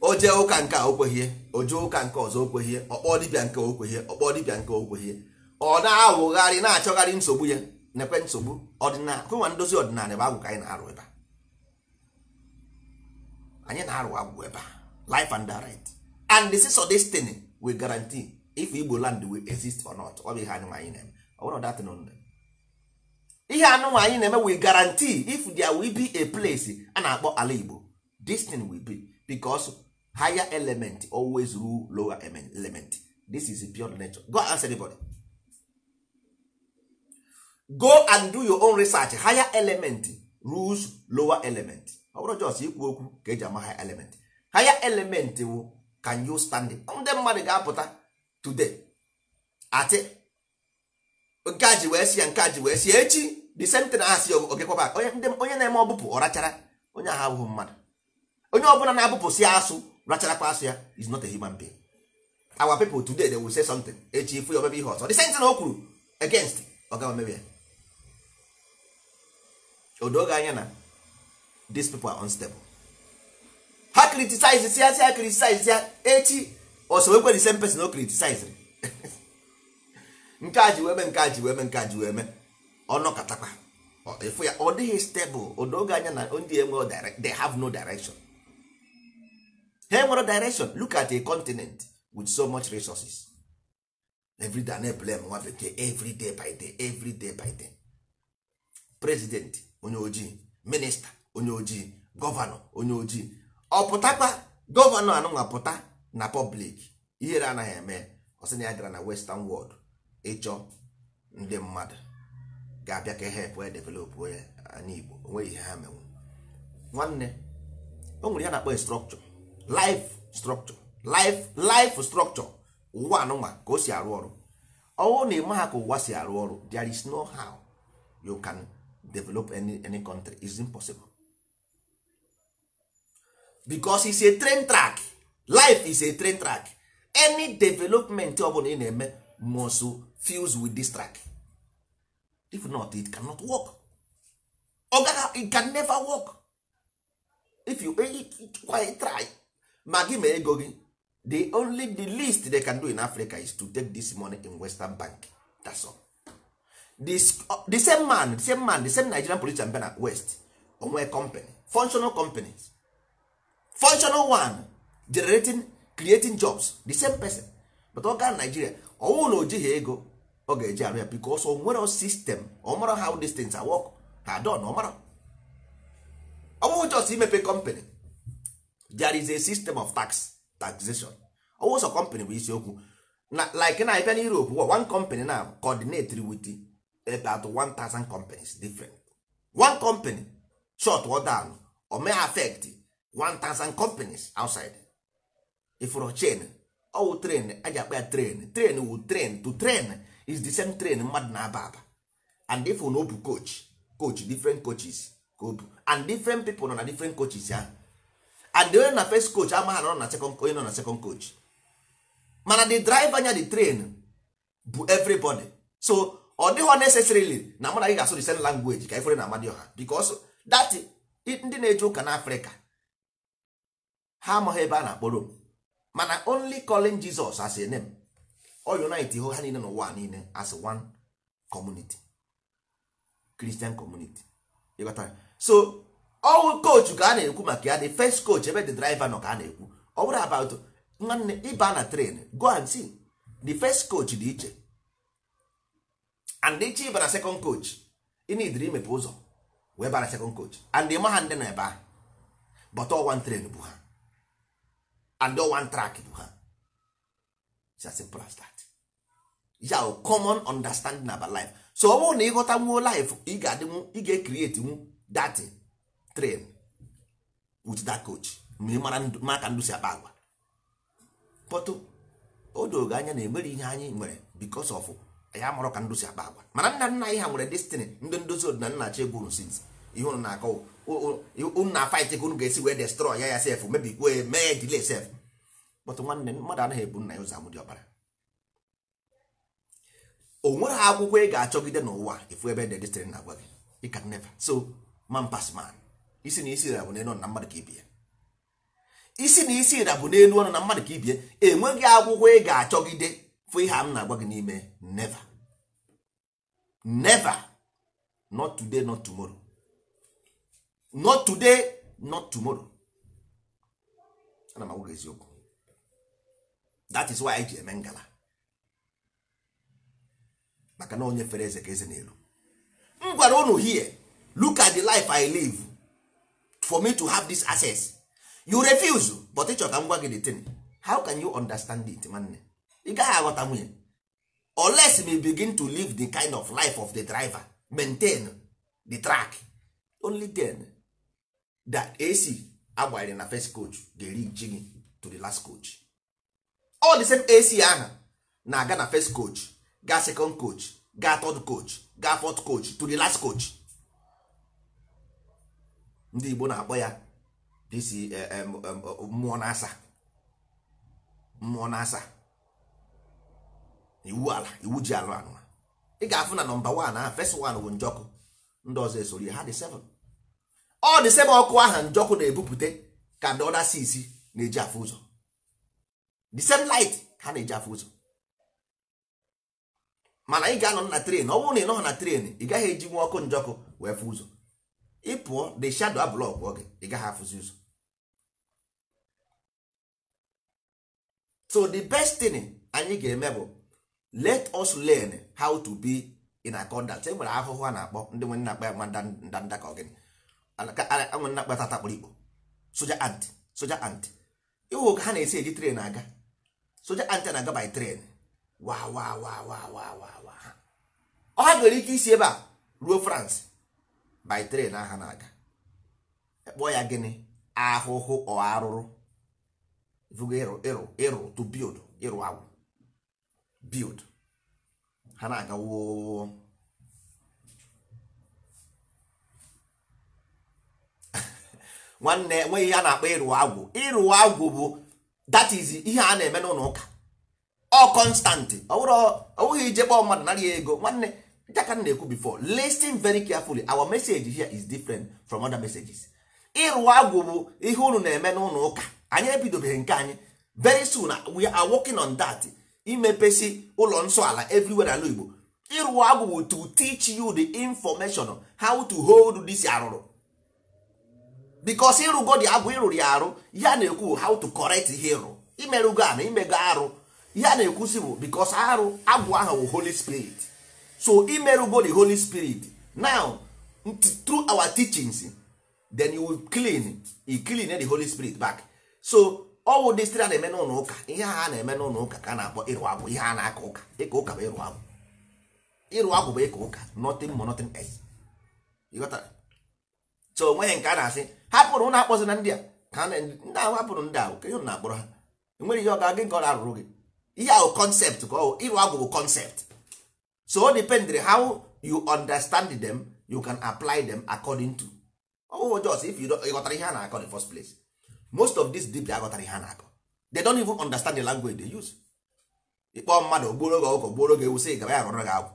o jee ụka nke a okweghie o jee ụka nke ọzọ okweghie ọkpọọ dibịa nke okweghie ọkpọọ dibịa nke okweghie ọ na-awụgharị na-achọgharị nsogbu ya nekwe nsogbu ọdịnala kụnwa ndozi ọdịnala ebe agwụ ka anyị na-arụ ebe a anyị na-arụ agwụ ebe a life and direct and the this of destiny we guarantee if Igbo land will exist or not ọ bụ ihe anụnwa anyị na-eme ọ bụrụ dat nonde ihe anụnwa anyị na-eme we guarantee if there will be a place a na-akpọ ala Igbo this will be because higher element always rule lower element this is pure nature go answer ask anybody go and do your own research higher element rules lower element ọ bụrụ jos ikwu okwu ka eji ama higher element higher element can you stand it ndị mmadụ ga-apụta today ati nke a ji wee si ya nke a ji wee si echi the same thing onye na-eme ọbụpụ ọrachara onye ahụ abụghị mmadụ onye ọbụla na-abụpụsị asụ rachara asị ya is not a human being our people today they will say something echi ifu ya omebe ihe ọzọ the same thing o kwuru against ọ gaghị omebe ya odoge anya na these people are unstable ha criticize ya si ha criticize ya echi osowekwe the same person o criticize nke a ji weme mee nke a ji wee nke a ji wee mee ọnọkatakwa ya ọ dịghị stable odoge anya na ndị enwe they have no direction ha nwere direction look at a continent with so much resources everyday na blame nwa bekee everyday by day everyday by day president onye ojii minista onye ojii gọvanọ onye ojii ọ pụtakwa gọvanọ anụnwa pụta na pọblik ihere anaghị eme ọsị na ya gara na western world ịchọ ndị mmadụ ga-abịa ka e help wee develop onye anya igbo onweghị ihe ha menwe nwanne o nwere ya na-akpọ structure life structure life life structure ụwa anụnwa ka o si arụ ọrụ ọwụ na ịma ha ka ụwa si arụ ọrụ there is no how you can develop any any country is impossible because is a train track life is a train track any development ọbụla ị na-eme must fuse with this track if not it cannot work ọ it can never work if you it, it, it, try ma gị ma ego gị the only the least they can do in africa is to take this money in western bank that's all. This, uh, the same man the same man the same nigerian police and bena west onwe company functional companies functional one generating creating jobs the same person but ọ gaa nigeria ọnwụ na o ego ọ ga-eji arụ ya bikos o nwere sistem ọ how these things are work ha don ọ mara ọ just imepe company there is a system of tax taxation ọwụsọ company bụ isiokwu like na abịa Europe one company na coordinate with eh, about 1000 companies different one company short well down or may affect 1000 companies outside ifụrụ chain ọwụ train aja akpa train train wu train to train is the same train mmadụ na-aba aba and if no obu coach coach different coaches go do and different people nọ na different coaches ahụ and the na first coach amaghara na second onye nọ na second coach mana the driver anya the train bụ everybody so ọ dịghọ necessarily na mụ na gị ga-asụ the same language ka ifere na ọha because that ndị na-eje ụka na afrịka ha amaghị ebe a na-akpọ Rome mana only calling Jesus as a name o unite ha niile n'ụwa niile as one community Christian community so ọwụ coach ka a na-ekwu maka ya the first coach ebe the driver nọ ka a na-ekwu ọ bụrụ about nwanne ịba na train go and see the first coach dị iche and iche ịba na second coach ị na-ediri imepe ụzọ wee bara second coach and ịma ha ndị na ebe ahụ but all one train bụ ha and all one track bụ ha it's as simple as that ya common understanding about life so ọ bụrụ na ịghọta nwuo life ị ga-adịnwu ị ga-ekrieti nwu datin train with that coach ma ndụ si akpa agwa pọtụ o dogo anya na emere ihe anyị nwere because of ya mụrụ ka ndụ si akpa agwa mana nna nna anyị ha nwere destiny ndị ndozi odina nna chi egwu sins ihe unu na-akọ unu fight ka unu ga-esi wee destroy ya ya sef mebikwa mee delay sef pọtụ nwanne mmadụ anaghị ebu nna ya ụzọ amụdị ọbara o nweghị akwụkwọ ị ga-achọgide n'ụwa ifu ebe de destiny na-agwa gị you can so man pass man isi na isi bụ n'elu ọnụ na mmadụ ka ibie isi na isi bụ n'elu ọnụ na mmadụ ka ibie enweghị akwụkwọ ị ga-achọgide fụ ihe m na-agwa gị n'ime never never not today not tomorrow not today not tomorrow ana m agwa eziokwu that is why anyị ji eme ngala maka na onye fere eze ka eze n'elu m gwara unu hie look at the life I live for me to have this access you refuse but ịchọ ka m gwa gị the thing how can you understand it nwanne ị gaghị aghọta nwunye unless me begin to live the kind of life of the driver maintain the track only then that ac agbanyere na first coach ga-eri ji gị to the last coach all the same ac ahụ na-aga na first coach ga second coach ga third coach ga fourth coach to the last coach ndị Igbo na-akpọ ya disi e eh, eh, eh, mmụọ na-asa mmụọ na-asa iwu ala iwu ji alụ anụ ị ga-afụ na nọmba wan a fes wan bụ njọkụ ndị ọzọ esori ha dị seven ọ dị seven ọkụ aha njọkụ na-ebupụte ka ndị ọda sisi na-eji afụ ụzọ the same light ha na-eji afụ ụzọ mana ị ga-anọ na tren ọ bụrụ na ị nọghị na tren ị gaghị eji nwa ọkụ njọkụ wee fụ ụzọ ị pụọ the shadow ablọk oge ị gaghị afụzi ụzọ so the best thing anyị ga-eme bụ let us learn how to be in accordant e nwere ahụhụ a na-akpọ ndị nwe nnakpa ya ndanda ka ọgịnị nwe nnakpa tata kpụrụ ikpo soja ant soja ant ịhụ ka ha na-esi eji tren aga soja ant na-aga by tren wa wa wa wa wa wa ha ọ ha nwere ike isi ebe a ruo France by train aha na-aga ekpo ya gịnị ahụhụ ọ arụrụ ịrụ ịrụ ịrụ to build ịrụ agwụ build ha na-aga woo nwanne enweghị ihe a na-akpọ ịrụ agwụ ịrụ agwụ bụ that is ihe a na-eme n'ụlọ ụka ọ kọnstantị ọ bụghị ije kpọọ mmadụ narị ego nwanne ka m na-ekwu before listin very carefully our message here is different from other messages ịrụ agwụ bụ ihe unu na-eme n'ụlọ ụka anyị ebidobeghị nke anyị very soon we are working on that imepesi ụlọ nsọ ala everywhere ala Igbo ịrụ agwụ bụ to teach you the information how to hold this arụrụ because ịrụgo agwụ ịrụrụ ya arụ ya na-ekwu how to correct ihe ịrụ imerụgo ana imego arụ ya na-ekwusi bụ because arụ agwụ ahụ bụ Holy Spirit so imerugo the holy spirit now through our teachings then you will clean you clean the holy spirit back so ọwụ dịstịrị a na-eme n'ụlọ ụka ihe a na-eme n'ụlọ ụka ka na-akpọ ịrụ agwụ ihe a na-aka ụka ịkọ ụka bụ ịrụ agwụ ịrụ agwụ bụ ịkọ ụka nothing more nothing else ịghọtara so onweghị nke a na-asị hapụrụ ụlọ akpọzi na ndị a ka ndị ahụ hapụrụ ndị ahụ kenye na akpọrọ ha enweghị ihe ọ ga-aga nke ọ na-arụrụ gị ihe ahụ kọnsept ka ọ ịrụ agwụ bụ kọnsept so depend how you understand them you can apply them according to oh just if you got ihe a na-akọ the first place most of this deep aghọtara ihe a na-akọ they don't even understand the language they use ịkpọ mmadụ gboro gị ọkụkọ gboro gị ewu sị gaba ya rọrọ gị agwụ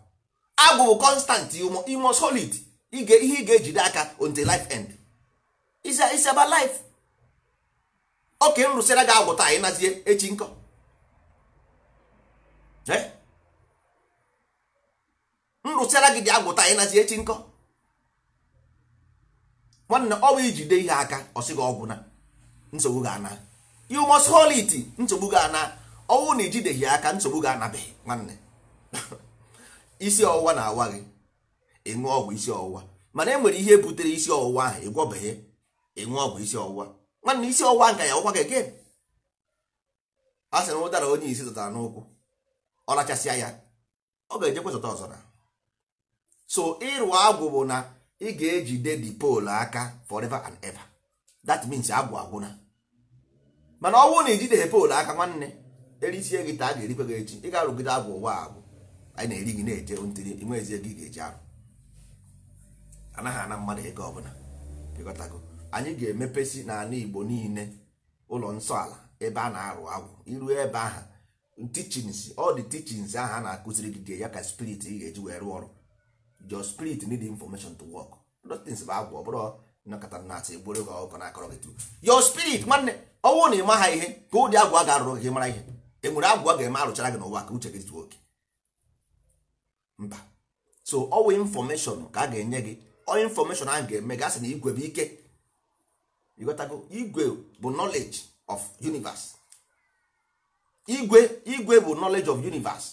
agwụ bụ constant imo solid ihe ị ga-ejide aka until life end is about life oke m rụsịra gị agwụ taa ịnazie echi nkọ eh? m rụsịara gị dị agwụta anyị nazi echi nkọ nwanne ọ bụ ijide ihe aka ọsị gị ọgwụ na nsogbu gị ana you must hold it nsogbu gị ana ọnwụ na ijideghị aka nsogbu gị anabeghị nwanne isi ọwụwa na-awa gị ịṅụ ọgwụ isi ọwụwa mana e nwere ihe butere isi ọwụwa ahụ ịgwọbeghị ịṅụ ọgwụ isi ọwụwa nwanne isi ọwụwa nka ya ụkwa gị gị a sị na ụdara onye isi zụtara n'ụkwụ ọ rachasịa ya ọ ga-ejekwe zụta ọzọ na so ịrụ agwụ bụ na ị ga-ejide the pole aka forever and ever that means agwụ agwụna mana ọ bụrụ na ijide pole aka nwanne erisie gị a ga-erikwe gị echi ị ga-arụgide agwụ ụwa agwụ anyị na-eri gị na-eje ntiri nwezie gị ga-eji arụ anaghị ana mmadụ ego ọbụla pịkọtago anyị ga-emepesi n'ala Igbo niile ụlọ nsọ ala ebe a na-arụ agwụ iru ebe aha tichins ọ dị teachings ahụ a na-akụziri gị ya ka spirit ị ga-eji wee rụọ ọrụ your spirit need information to work those things bụ agwa ọ bụrụ nakọta na-atị egboro gị ọkọ na-akọrọ gị tu. your spirit nwanne ọnwụ na ịma ha ihe ka ụdị agwa ga-arụrụ gị mara ihe enwere agwa ga-eme arụchara gị n'ụwa ka uche gị zuo oke mba so ọwụ infọmeshọn ka a ga-enye gị ọ infọmeshọn ahụ ga-eme gasị na igwe bụ ike ịghọtago igwe bụ knowledge of universe igwe igwe bụ knowledge of universe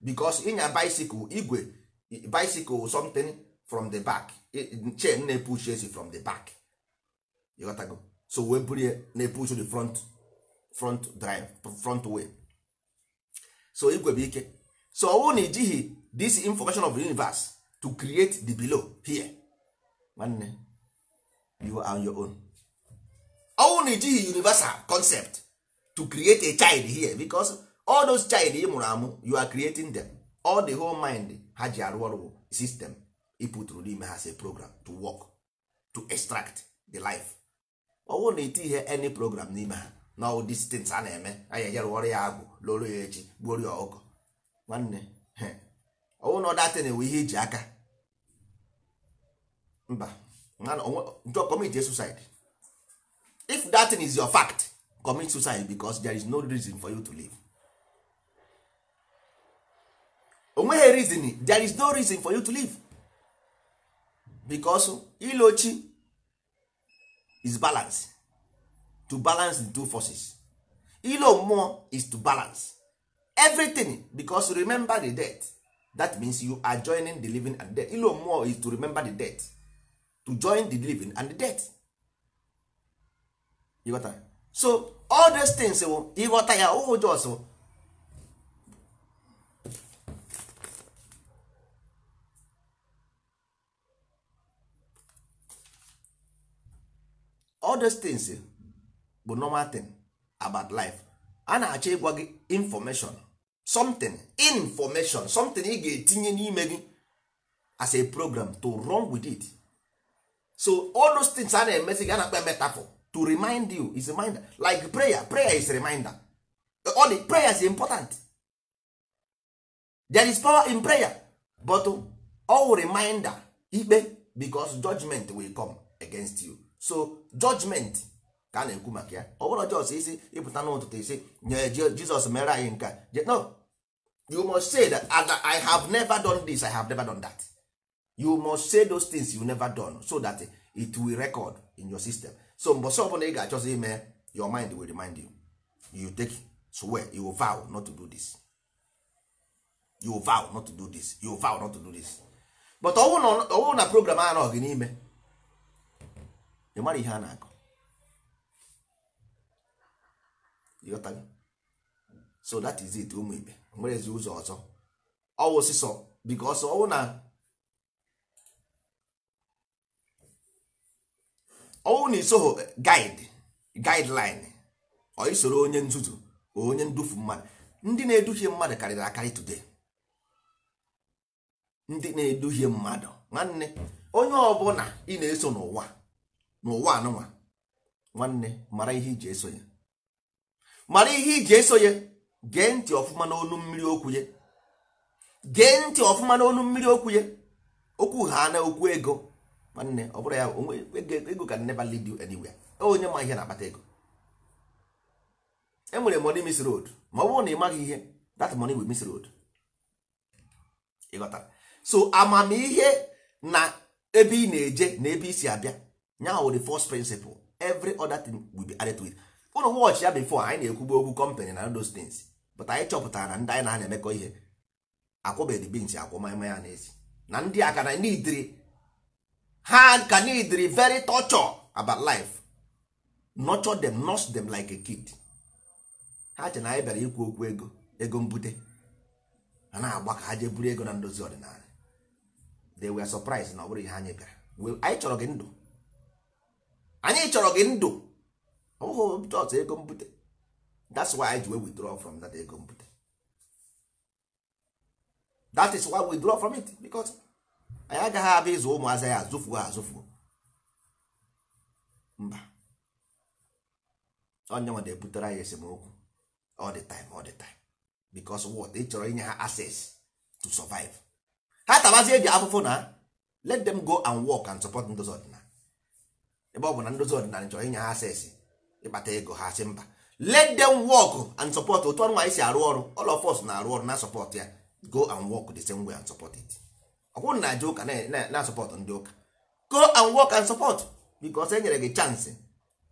because ịnya bicycle igwe bicycle something from the back chain na-epush esi from the back ịghọtago so wee buru ya na-epush the front front drive front way so igwe bụ ike so ọwụ na ijighị this information of the universe to create the below here nwanne you are on your own ọwụ na ijighị universal concept to create a child here because all those child ị mụrụ amụ you are creating them all the whole mind ha ji arụ ọrụ sistem ịpụtụrụ n'ime ha say program to work to extract the life ọ na iti ihe any program n'ime ha na ọwụ distance a na-eme anyị ejerụ ọrụ ya agwụ lụrụ ya echi gbuoro ya ọkụkọ nwanne ọwụ na na-enwe ihe eji aka mba njọ commit suicide if that thing is your fact commit suicide because there is no reason for you to live onweghị reason there is no reason for you to live because ilochi is balance to balance the two forces ilo mmụọ is to balance everything because remember the death that means you are joining the living and the death ilo mmụọ is to remember the death to join the living and the death ịghọta so all those things ịghọta ya ụhụ jos all those things eh, bụ normal thing about life a na-achọ ịgwa gị information something information something ị ga-etinye n'ime gị as a program to run with it so all those things a na ana gị a na-akpa metaphor to remind you is reminder like prayer prayer is reminder all the prayer is important there is power in prayer but all reminder ikpe because judgment will come against you so judgment ka a na-ekwu maka ya ọ bụrụ jos isi ịpụta n'ụtụtụ isi nye jizọs mere anyị nke no you must say that i have never done this i have never done that you must say those things you never done so that it will record in your system so mbọsị ọbụla ị ga-achọzi ime your mind will remind you you take swear you vow not to do this you vow not to do this you vow not to do this but ọwụ na program anọghị n'ime ị mara ihe a na-akọ so that is it ụmụ ibe nwerezi ụzọ ọzọ ọwụ sịsọ biko ọsọ ọwụ na ọwụ na isoho guide guideline ọ onye nzuzu onye ndufu mmadụ ndị na-eduhie mmadụ karịrị akarị today ndị na-eduhie mmadụ nwanne onye ọbụla ị na-eso n'ụwa n'ụwa anụnwa nwanne mara ihe iji eso ya mara ihe iji eso ya gee ntị ọfụma n'olu mmiri okwu ya gee ntị ọfụma n'olu mmiri okwu ya okwu ha na okwu ego nwanne ọ bụrụ ya ego can never lead you anywhere onye ma ihe na-akpata ego enwere money miss road ma ọ bụrụ na ị maghị ihe that money will miss road ịghọtara so amamihe na ebe ị na-eje na ebe isi abịa nyaha wụ the first principle every other thing will be added to it ụnụ watch ya before anyị na-ekwugbu okwu company na those things but anyị chọpụtara na ndị anyị na na-emekọ ihe akwụbeghị bins akwụ maya ya n'ezi na ndị ka na nidri ha ka nidri very torture about life nurture them nurse them like a kid ha che na anyị bịara ikwu okwu ego ego mbute a na-agba ka ha jee buru ego na ndozi ọdịnala they were surprised na ọ bụrụ ihe anyị bịara anyị chọrọ gị ndụ anyị chọrọ gị ndụ ụhụ ọtụ ego mbute that's why i ji withdraw from that ego mbute that is why we withdraw from it because anyị agaghị abịa ịzụ ụmụazị ya azụfuo azụfuo mba onye nwa na-ebutere anyị esemokwu all the time all the time because what ị chọrọ inye ha access to survive ha tabazie eji afụfụ na let them go and work and support ndozi ọdịnala ebe ọ bụ na ndozi ọdịnala chọrọ inye ha asesi ịkpata ego ha si mba let them work and support otu ọrụ anyị si arụ ọrụ all of us na-arụ ọrụ na support ya go and work the same way and support it ọ bụrụ na aja ụka na support ndị ụka go and work and support because e nyere gị chance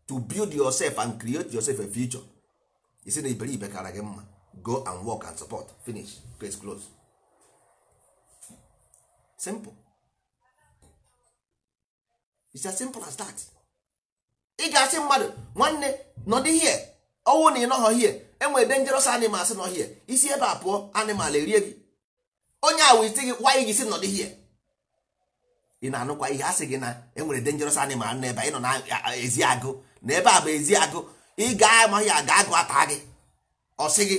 to build yourself and create yourself a future isi na iberibe kara gị mma go and work and support finish case close simple it's as simple as that. ị ga-asị mmadụ nwanne nọdụ ihe ọnwụ na ị nọghọ ihe enwere dangerous animals nọ here isi ebe a pụọ animal erie gị onye a isi gị wanyị gị si nọdụ ihe ị na-anụkwa ihe asị gị na enwere dangerous animal ebe ị nọ na ezi agụ na ebe a bụ ezi agụ ị ga-amaghị aga agụ ata gị ọ sị gị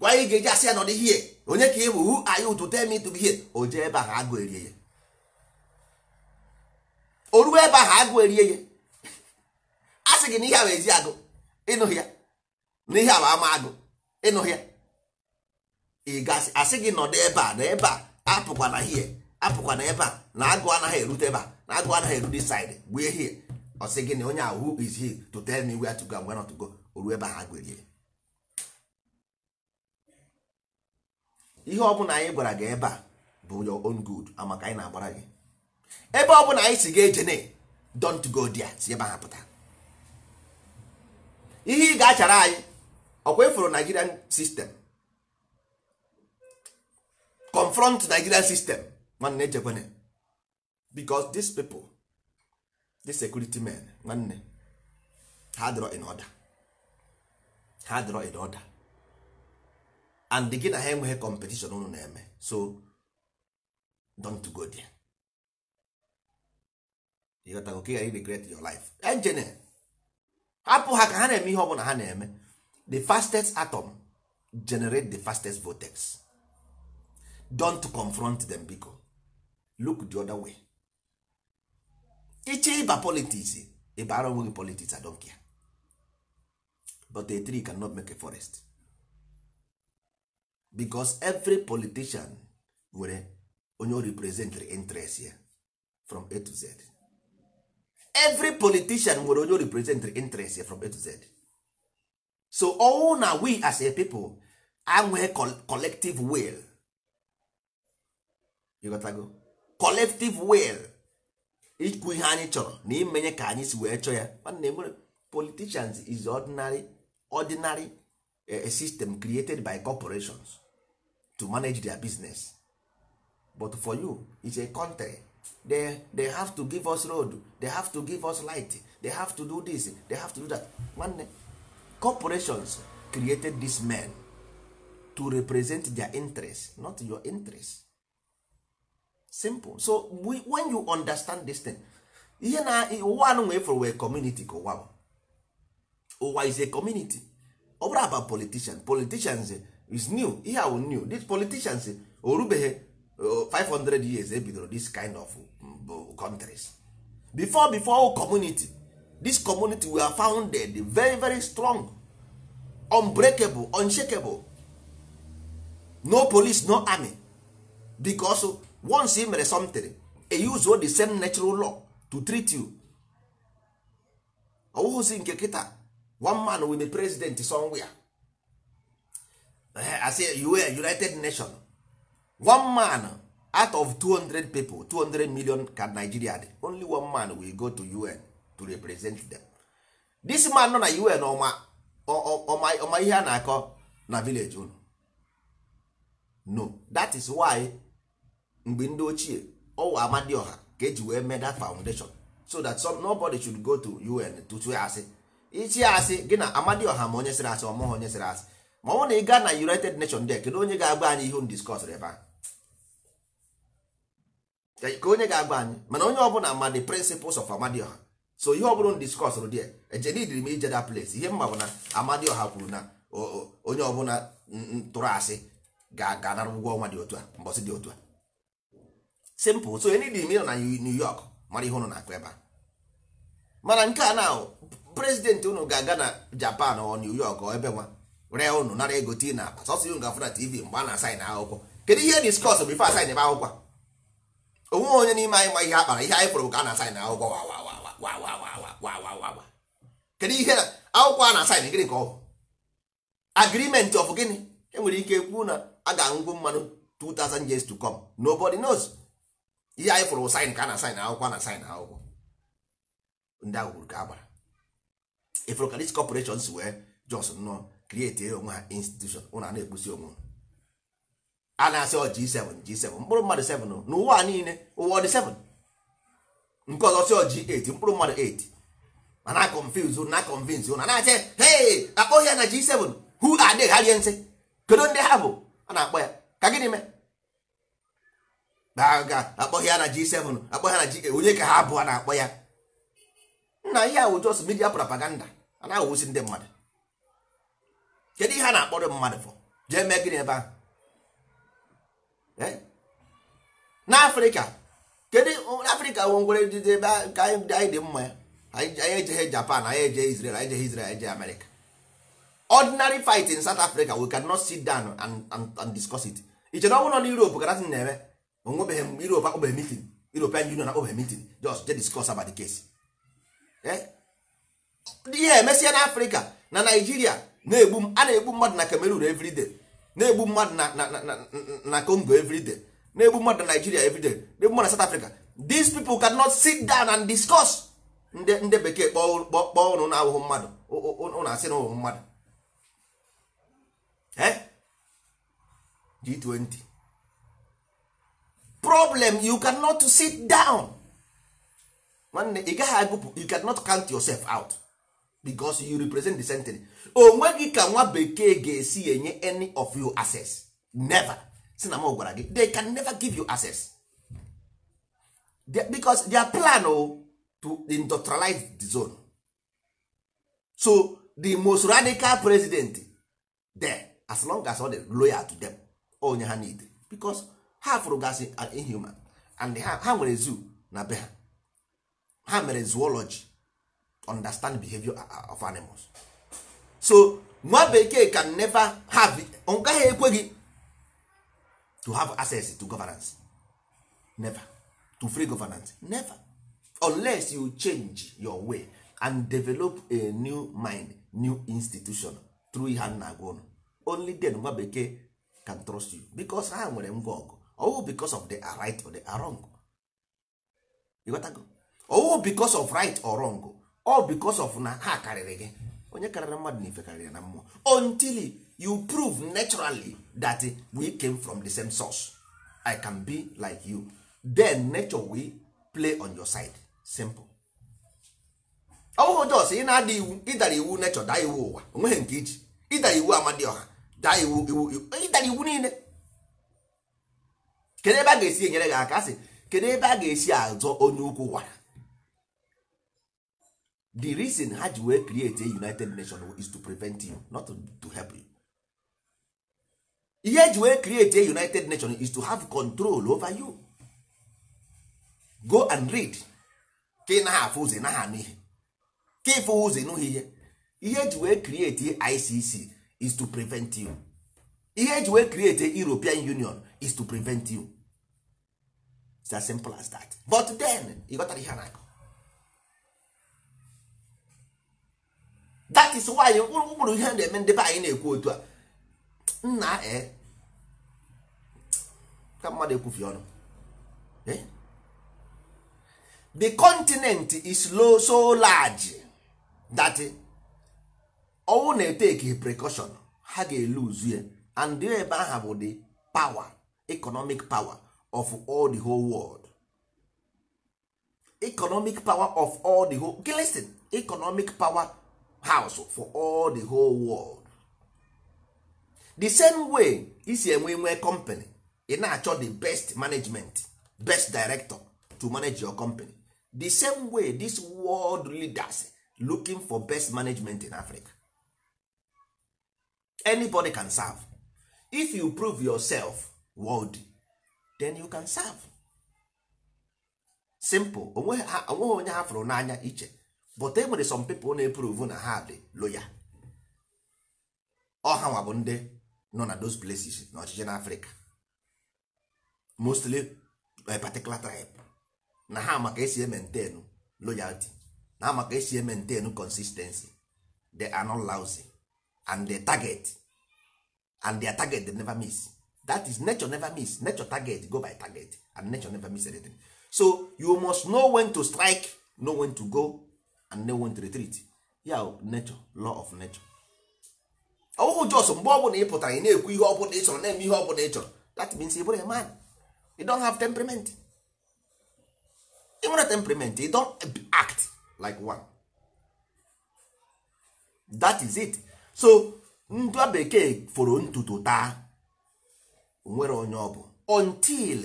gwa ị ga-eji asị ya nọdụ ihe onye ka ị bụ hu ayụ ụtụ temi ịtụ ihe o jee ebe ahụ agụ erie ya o ruo ebe ahụ agụ erie ya sị gị n'ihe ihe a bụ ezi agụ ịnụ ya na ihe a bụ ama agụ ịnụ ya ị asị gị nọdụ ebe a na ebe a apụkwa na hie apụkwa na ebe a na agụ anaghị erute ebe a na agụ anaghị erute saidị gbue hie ọsị gị na onye ahụ who is he to tell me where to go and where not to go oru ebe ha gwerie ihe ọbụla anyị gwara gị ebe a bụ your own good amaka anyị na-agbara gị ebe ọbụla anyị si ga ejene don't go dia si ebe ha pụta ihe ị ga-achara anyị ọkwa ịfụrụ nigerian sistem confront nigerian system nwanne echekwana because these people the security men nwanne ha dịrọ in order ha dịrọ in order and gị na ha enweghị competition unu na-eme so don't go there you got to go regret your life engineer apụ ha ka ha na-eme ihe ọbụla ha na-eme the fastest atom generate the fastest vortex don't confront them biko look the other way iche ịba politics ịbara onwe gị politics I don't care but a tree cannot make a forest because every politician nwere onye o representary interest ya from A to Z every politician nwere onye represent interest from a to z so all na we as a people anwe collective will go, collective will ikwu ihe anyị chọrọ na imenye ka anyị si wee chọọ ya na e politicians is ordinary ordinary eh, system created by corporations to manage their business but for you it's a country they, they have to give us road they have to give us light they have to do this they have to do that nwanne corporations created these men to represent their interest not your interest simple so we, when you understand this thing ihe na ụwa anụ for wee community ka ụwa ụwa is a community ọ bụrụ about politician politicians is new ihe awụ new these politicians orubeghị 500 years ebidoro eh, this kind of mm, oh, countries before before community this community were founded very very strong unbreakable unshakable no police no army because once e mere something e use the same natural law to treat you ọwụhụzi nke kịta one man with a president somewhere eh, as a united nation one man out of 200 people 200 million ka Nigeria dị only one man will go to UN to represent them this man nọ na UN ọma ihe a na-akọ na village unu no that is why mgbe ndị ochie ọwa Amadioha ka eji wee mee that foundation so that some nobody should go to UN to tụọ asị ichi asị gị na oha ma onye sịrị asị ọmụghị onye sịrị asị ma ọ bụrụ na ị gaa na United Nations dek kedu onye ga-agba anyị ihe unu ebe ahụ ka onye ga agba anyị mana onye ọbụla ma the principles of amadioha so ihe ọbụla m discuss rụ dị ejenidiri m ije da place ihe mma bụ na amadioha kwuru na onye ọbụla tụrụ asị ga-anara ụgwọ ọnwa dị otu a mbọsị dị otu a simple so enidi m ịnọ na New York mara ihe ụnụ na-akụ ebe a mana nke a na prezidenti ụnụ ga-aga na Japan ọ New York ọ ebe nwa ree ụnụ nara ego tii na akpa sọsọ ihe ga-afụ na TV mgbe a na-asaịn akwụkwọ kedu ihe discuss bifo asaịn ebe akwụkwọ onwe onye n'ime anyị ma ihe a kpara ihe anyị kpụrụ ka a na-asaịn akwụkwọ kedu ihe akwụkwọ a na-asaịn gịnị ka ọ bụ agrimenti of gịnị enwere ike kwuo na a ga-aṅụgbu mmanụ 2000 years to come nobody knows ihe anyị fụrụ saịn ka a na-asaịn akwụkwọ a na-asaịn akwụkwọ ndị ahụ ka a gbara ifụrụ ka dis si wee jos nọ krieti onwe ha institushon ụna na-ekpusi onwe a na-asị ọ G7 G7 mkpụrụ mmadụ 7 n'ụwa niile ụwa ọ dị 7 nke ọzọ sị ọ G8 mkpụrụ mmadụ 8 ma na confuse na convince na na-asị hey akpọghị ya na G7 hu are they ha nsị kedu ndị ha bụ a na-akpọ ya ka gịnị mee ga akpọghị ya na G7 akpọghị ya na G8 onye ka ha bụ a na-akpọ ya nna ihe ahụ just media propaganda a na-awụsi ndị mmadụ kedu ihe a na-akpọrọ mmadụ fọ jee mee gịnị ebe ahụ Eh? n'afrịka kedu afrịka nwe nwere ndị ebe ka anyị dị mma ya anyị ejeghị japan anyị ejeghị israel anyị ejeghị israel anyị ejeghị america ordinary fight in south africa we cannot sit down and, and, discuss it iche na ọ bụrụ na europe ka datin na-eme onwebeghị m europe akpọbeghị meeting european union akpọbeghị meeting just je discuss about the case eh? ihe emesịa na na naijiria na-egbu a na-egbu mmadụ na cameroon every na-egbu mmadụ na Congo everyday na-egbu mmadụ na Nigeria everyday na-egbu mmadụ na South Africa these people cannot sit down and discuss ndị bekee kpọọ ụnụ na-ahụhụ mmadụ ụnụ asị na ụhụ mmadụ G20 problem you cannot sit down nwanne ị gaghị agụpụ you cannot count yourself out because you represent the century onwe gị ka nwa bekee ga-esi enye any of you access never si na m gwara gị they can never give you access because their plan o oh, to industrialize the zone so the most radical president there as long as all the loyal to them onye ha need because ha fụrụ gasị inhuman and ha nwere zoo na be ha ha mere zoology understand behavior uh, uh, of animals so nwa bekee can never have ọ gaghị ekwe gị to have access to governance never to free governance never unless you change your way and develop a new mind new institution through ihe na agwa ụnụ only then nwa bekee can trust you because ha nwere ngwa ọgụ ọwụ because of the right or the wrong ịghọtago because of right or wrong or because of na ha karịrị gị onye karịrị mmadụ na ife karịrị na mmụọ until you prove naturally that we came from the same source i can be like you then nature will play on your side simple ọwụhụ jos ị na-ada iwu ịdara iwu nature daa iwu ụwa onweghị nke iji ịdara iwu amadioha daa iwu iwu ịdara iwu niile kedu ebe a ga-esi enyere gị aka asị kedu ebe a ga-esi azọ onye ukwu wara the reason ha ji wee create a united nation is to prevent you not to, help you ihe ji wee create a united nation is to have control over you go and read ka ị naghị afụ ụzọ naghị anụ ihe ka ịfụ ụzọ ịnụghị ihe ihe ji wee create ICC is to prevent you ihe ji wee create European Union is to prevent you it's as simple as that but then ị ghọtara ihe a na-akọ that is why ụkpụrụ ihe na-eme ndị be anyị na-ekwu otu a nna e ka mmadụ ekwufi ọnụ the continent is low so large that ọnwụ eh, na-eteke precaution ha ga-eluzu ya and ebe aha bụ the power economic power of all the whole world economic power of all the whole listen economic power house for all the whole world the same way isi enwe nwee company ị na-achọ the best management best director to manage your company the same way this world leaders looking for best management in africa anybody can serve if you prove yourself worthy then you can serve simple onweghị onye ha fụrụ n'anya iche but e nwere some people na-eprove na ha dị loya ọha nwa bụ ndị nọ na those places na ọchịchị na Afrịka mostly a particular tribe na ha maka esi maintain loyalty na ha maka esi maintain consistency they are not lousy and they target and their target they never miss that is nature never miss nature target go by target and nature never miss anything so you must know when to strike know when to go and they to retreat ya nature law of nature ọwụhụ jos mgbe ọ bụla ị pụtara ị na-ekwu ihe ọbụla ị chọrọ na-eme ihe ọbụla ị chọrọ that means ị bụrụ a man you don't have temperament even nwere temperament you don't act like one that is it so ndụ bekee foro ntutu taa nwere onye ọ bụ until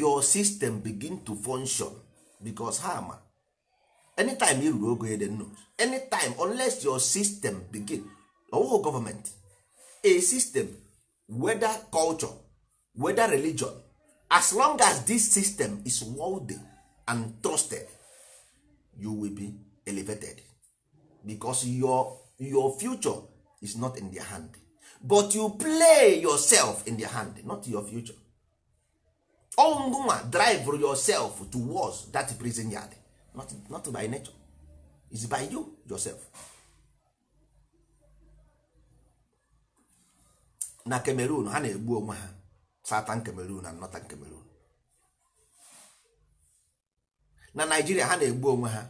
your system begin to function because ha ma anytime you ruru ogo eden no anytime unless your system begin ọwụghị government a system weda culture weda religion as long as this system is worthy and trusted you will be elevated because your, your future is not in their hand but you play yourself in their hand not your future ọngụnwa drive yourself towards that prison yard not, not by nature is by you yourself na Cameroon ha na-egbu onwe ha satan Cameroon na northern Cameroon na Nigeria ha na-egbu onwe ha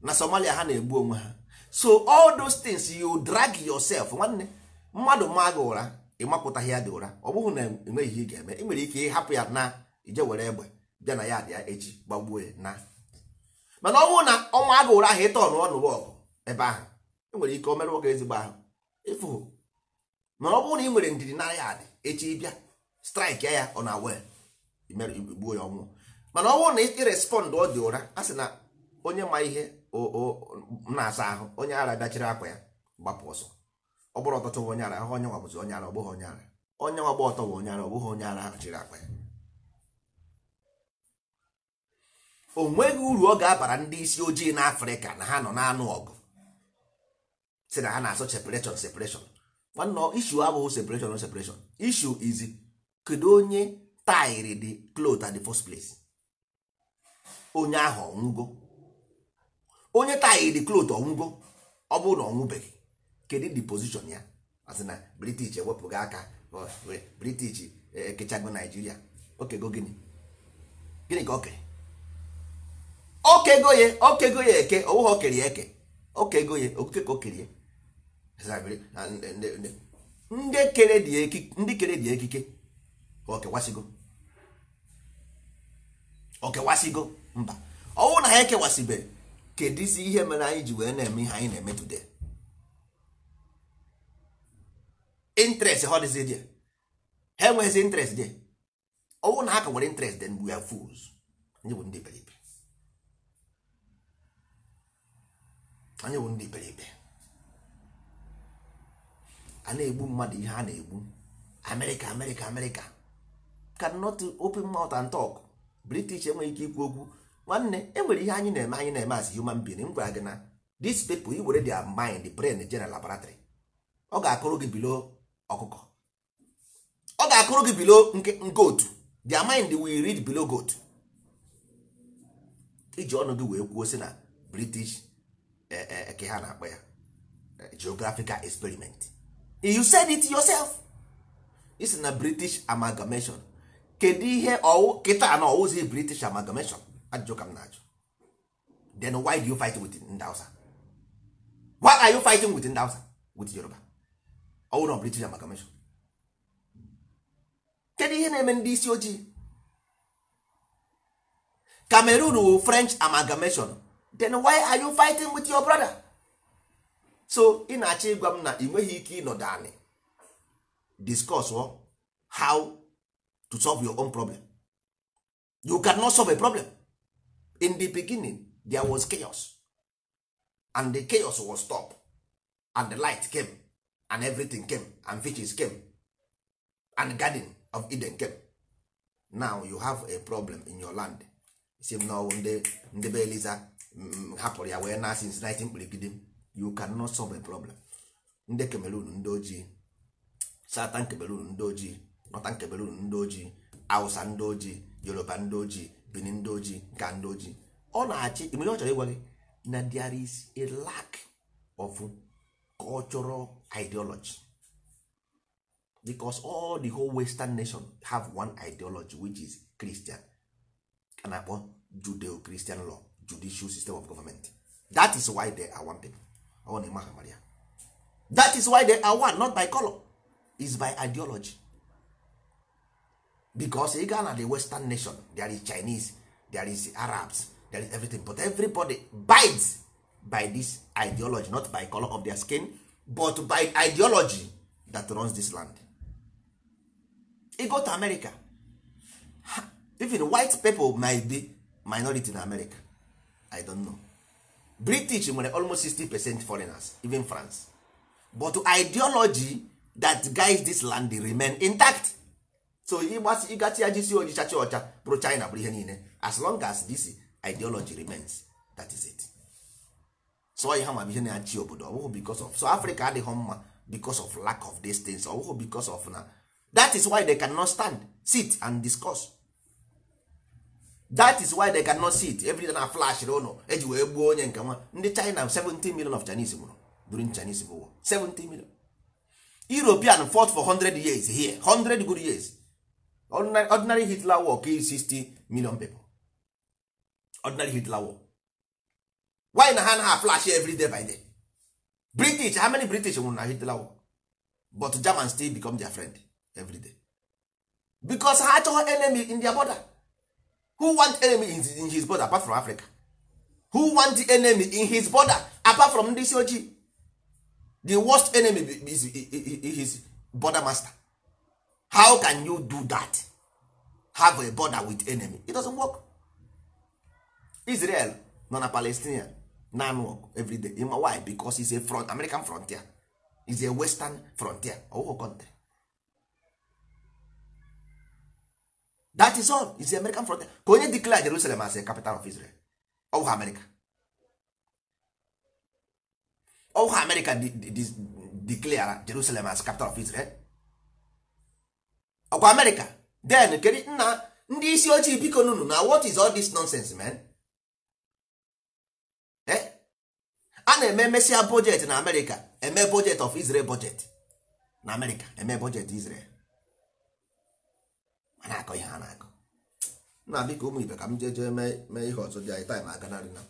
na Somalia ha na-egbu onwe ha so all those things you drag yourself nwanne mmadụ ma gị ụra ịmapụtaghị ya dị ụra ọ bụghị na enweghị ihe ga-eme ị nwere ike ịhapụ ya na ije were egbe bịa na ya dị ya echi gbagbuo na mana ọ bụrụ na ọnwa agụ ụra ahụ ọnụ ọnụ ọgụ ebe ahụ enwere ike o merụọ gị ezigbo ahụ ịfụ na ọ bụrụ na ị nwere ndidi narị adị echi bịa straịkị ya ọ na wel igbuo ya ọnwụ mana ọ bụrụ na ị respọndụ ọ dị ụra a sị na onye ma ihe na-asa ahụ onye ara bịachiri akwa ya gbapụ ọsọ ọ bụrụ ọtọtọ onye ara ahụ onye nwa bụzi onye ara ọ bụghị onye ara onye nwa gba ọtọ bụ onye ara ọ bụghị onye ara ahụ chiri akwa ya o nweghị uru ọ ga-abara ndị isi ojii n'afrịka na ha nọ na-anụ ọgụ si na ha na-asọ separation separation nwanne isu abụghị separation separation isu izi kedu onye tairi dị cloth at the first place onye ahụ ọnwụgo onye tairi dị cloth ọnwụgo ọ bụrụ na ọ kedu the position ya asị na british ewepụghị aka british ekechago e, naijiria okego gịnị gịnị ka o kere okego ya okego ya eke onwe ha okere eke okego ya okike ka okerie ndị kere dị ekike ka okewasịgo okewasịgo mba ọnwụ na ha ekewasịbeghị kedụzi ihe mere anyị ji wee na-eme ihe anyị na-eme today interest ha dịzi dị ha enweghịzi interest dị ọnwụ na ha ka nwere interest dị mgbe ya fools ndị bụ ndị beribe anyị bụ ndị peripe a na-egbu mmadụ ihe a na-egbu amerịka amerịka amerịka can not open mouth and talk british enweghị ike ikwu okwu nwanne enwere ihe anyị na-eme anyị na-eme as human being m gwara gị na this people i were their mind brain general laboratory ọ ga-akụrụ gị bilo ọkụkọ ọ ga-akụrụ gị bilo goat their mind will read below goat iji ọnụ gị wee kwuo sị na british eke eh, eh, eh, ha na-akpọ ya geographical experiment you said it yourself is na british amalgamation kedu ihe ọwụ kịta na ọwụzi british amalgamation ajụjụ ka m na-ajụ then why do you fight with Ndausa? Hausa why are you fighting with Ndausa? with Yoruba ọwụ na british amalgamation kedu ihe na-eme ndị isi ojii Cameroon french amalgamation then why are you fighting with your brother so ị na-achọ ịgwa m na ị nweghị ike ịnọdụ anị discuss how to solve your own problem you cannot solve a problem in the beginning there was chaos and the chaos was stopped and the light came and everything came and fishes came and garden of Eden came now you have a problem in your land si m ndị ndebe eliza hapụrụ ya wee na since 19 kpirigide you cannot solve a problem ndị Cameroon ndị ojii Southern Cameroon ndị ojii Northern Cameroon ndị ojii Hausa ndị ojii Yoruba ndị ojii Benin ndị ojii ka ndị ojii ọ na-achị imere ọ chọrọ ịgwa gị na there is a lack of cultural ideology because all the whole western nation have one ideology which is Christian a na-akpọ Judeo-Christian law judicial system of government that is why they are one people ọ na-eme that is why they are one not by color is by ideology because ị gaa na the western nation there is chinese there is arabs there is everything but everybody bides by this ideology not by color of their skin but by ideology that runs this land e go to america even white people might be minority in america i don't know british nwere almost 60 percent foreigners even france but ideology that guides this land remain intact so ịgbasi ịgasị ya jisi ojicha chi ọcha bụrụ china bụrụ ihe niile as long as this ideology remains that is it so ihe ma ihe na-achị obodo ọbụghụ because of so africa adịghị mma uh, because of lack of these things ọbụghụ oh, because of na that is why they cannot stand sit and discuss that is why they cannot see it every day na flash ụlọ eji wee gbuo onye nke nwa ndị China 17 million of Chinese nwụrụ during Chinese War 17 million European fought for 100 years here 100 good years ordinary, ordinary Hitler war kill 60 million people ordinary Hitler war why na ha na ha flash every day by day British how many British nwụrụ na Hitler war but Germans still become their friend every day because ha chọọ enemy in their border who want enemy in his, in his border apart from africa who want the enemy in his border apart from ndị isi ojii the worst enemy is his border master how can you do that have a border with enemy it doesn't work israel nọ na palestinian nan work every why because it's a front american frontier is a western frontier ọwụghụ country that is all is the american frontier ka onye declare jerusalem as a capital of israel ọwụwa america ọwụwa america declare jerusalem as capital of israel ọkwa america den kedu nna ndị isi ojii biko nunu na what is all this nonsense man eh? a na-eme mesia budget na america eme budget of israel budget na america eme budget israel ma akọ ihe ha na-akọ na biko ụmụ ibe ka m jee jee mee ihe ọzọ dị anyị taịm aga narị na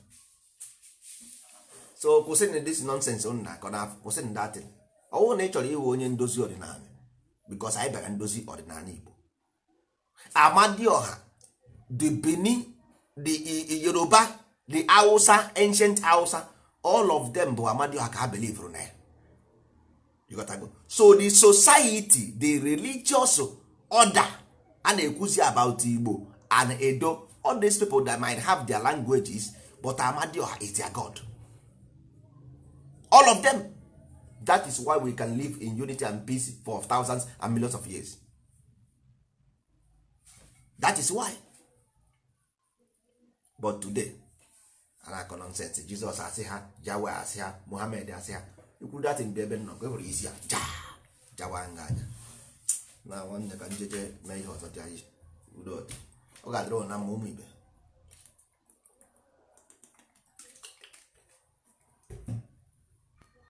so kwụsịnụ dis nonsens unu na-akọ n'afọ kwụsịnụ datin ọ bụrụ na ị chọrọ ịwụ onye ndozi ọdịnala bikos anyị bịara ndozi ọdịnala igbo amadioha the benin the yoruba the hausa ancient hausa all of them bụ amadioha ka ha belivru na ya so the society the religious order a na-ekwuzi about Igbo and Edo all these people that might have their languages but Amadioha is their God all of them that is why we can live in unity and peace for thousands and millions of years that is why but today anakọ nonsense Jizọs asị ha Jawe asị ha Mohamed asị ha ikwuru dat bụ ebe nnọkọ e nwere isi ya ja jawa nga anya na nwanne ka njeje mee ihe ọzọ ọ ga-adịrị na mma ụmụ ibe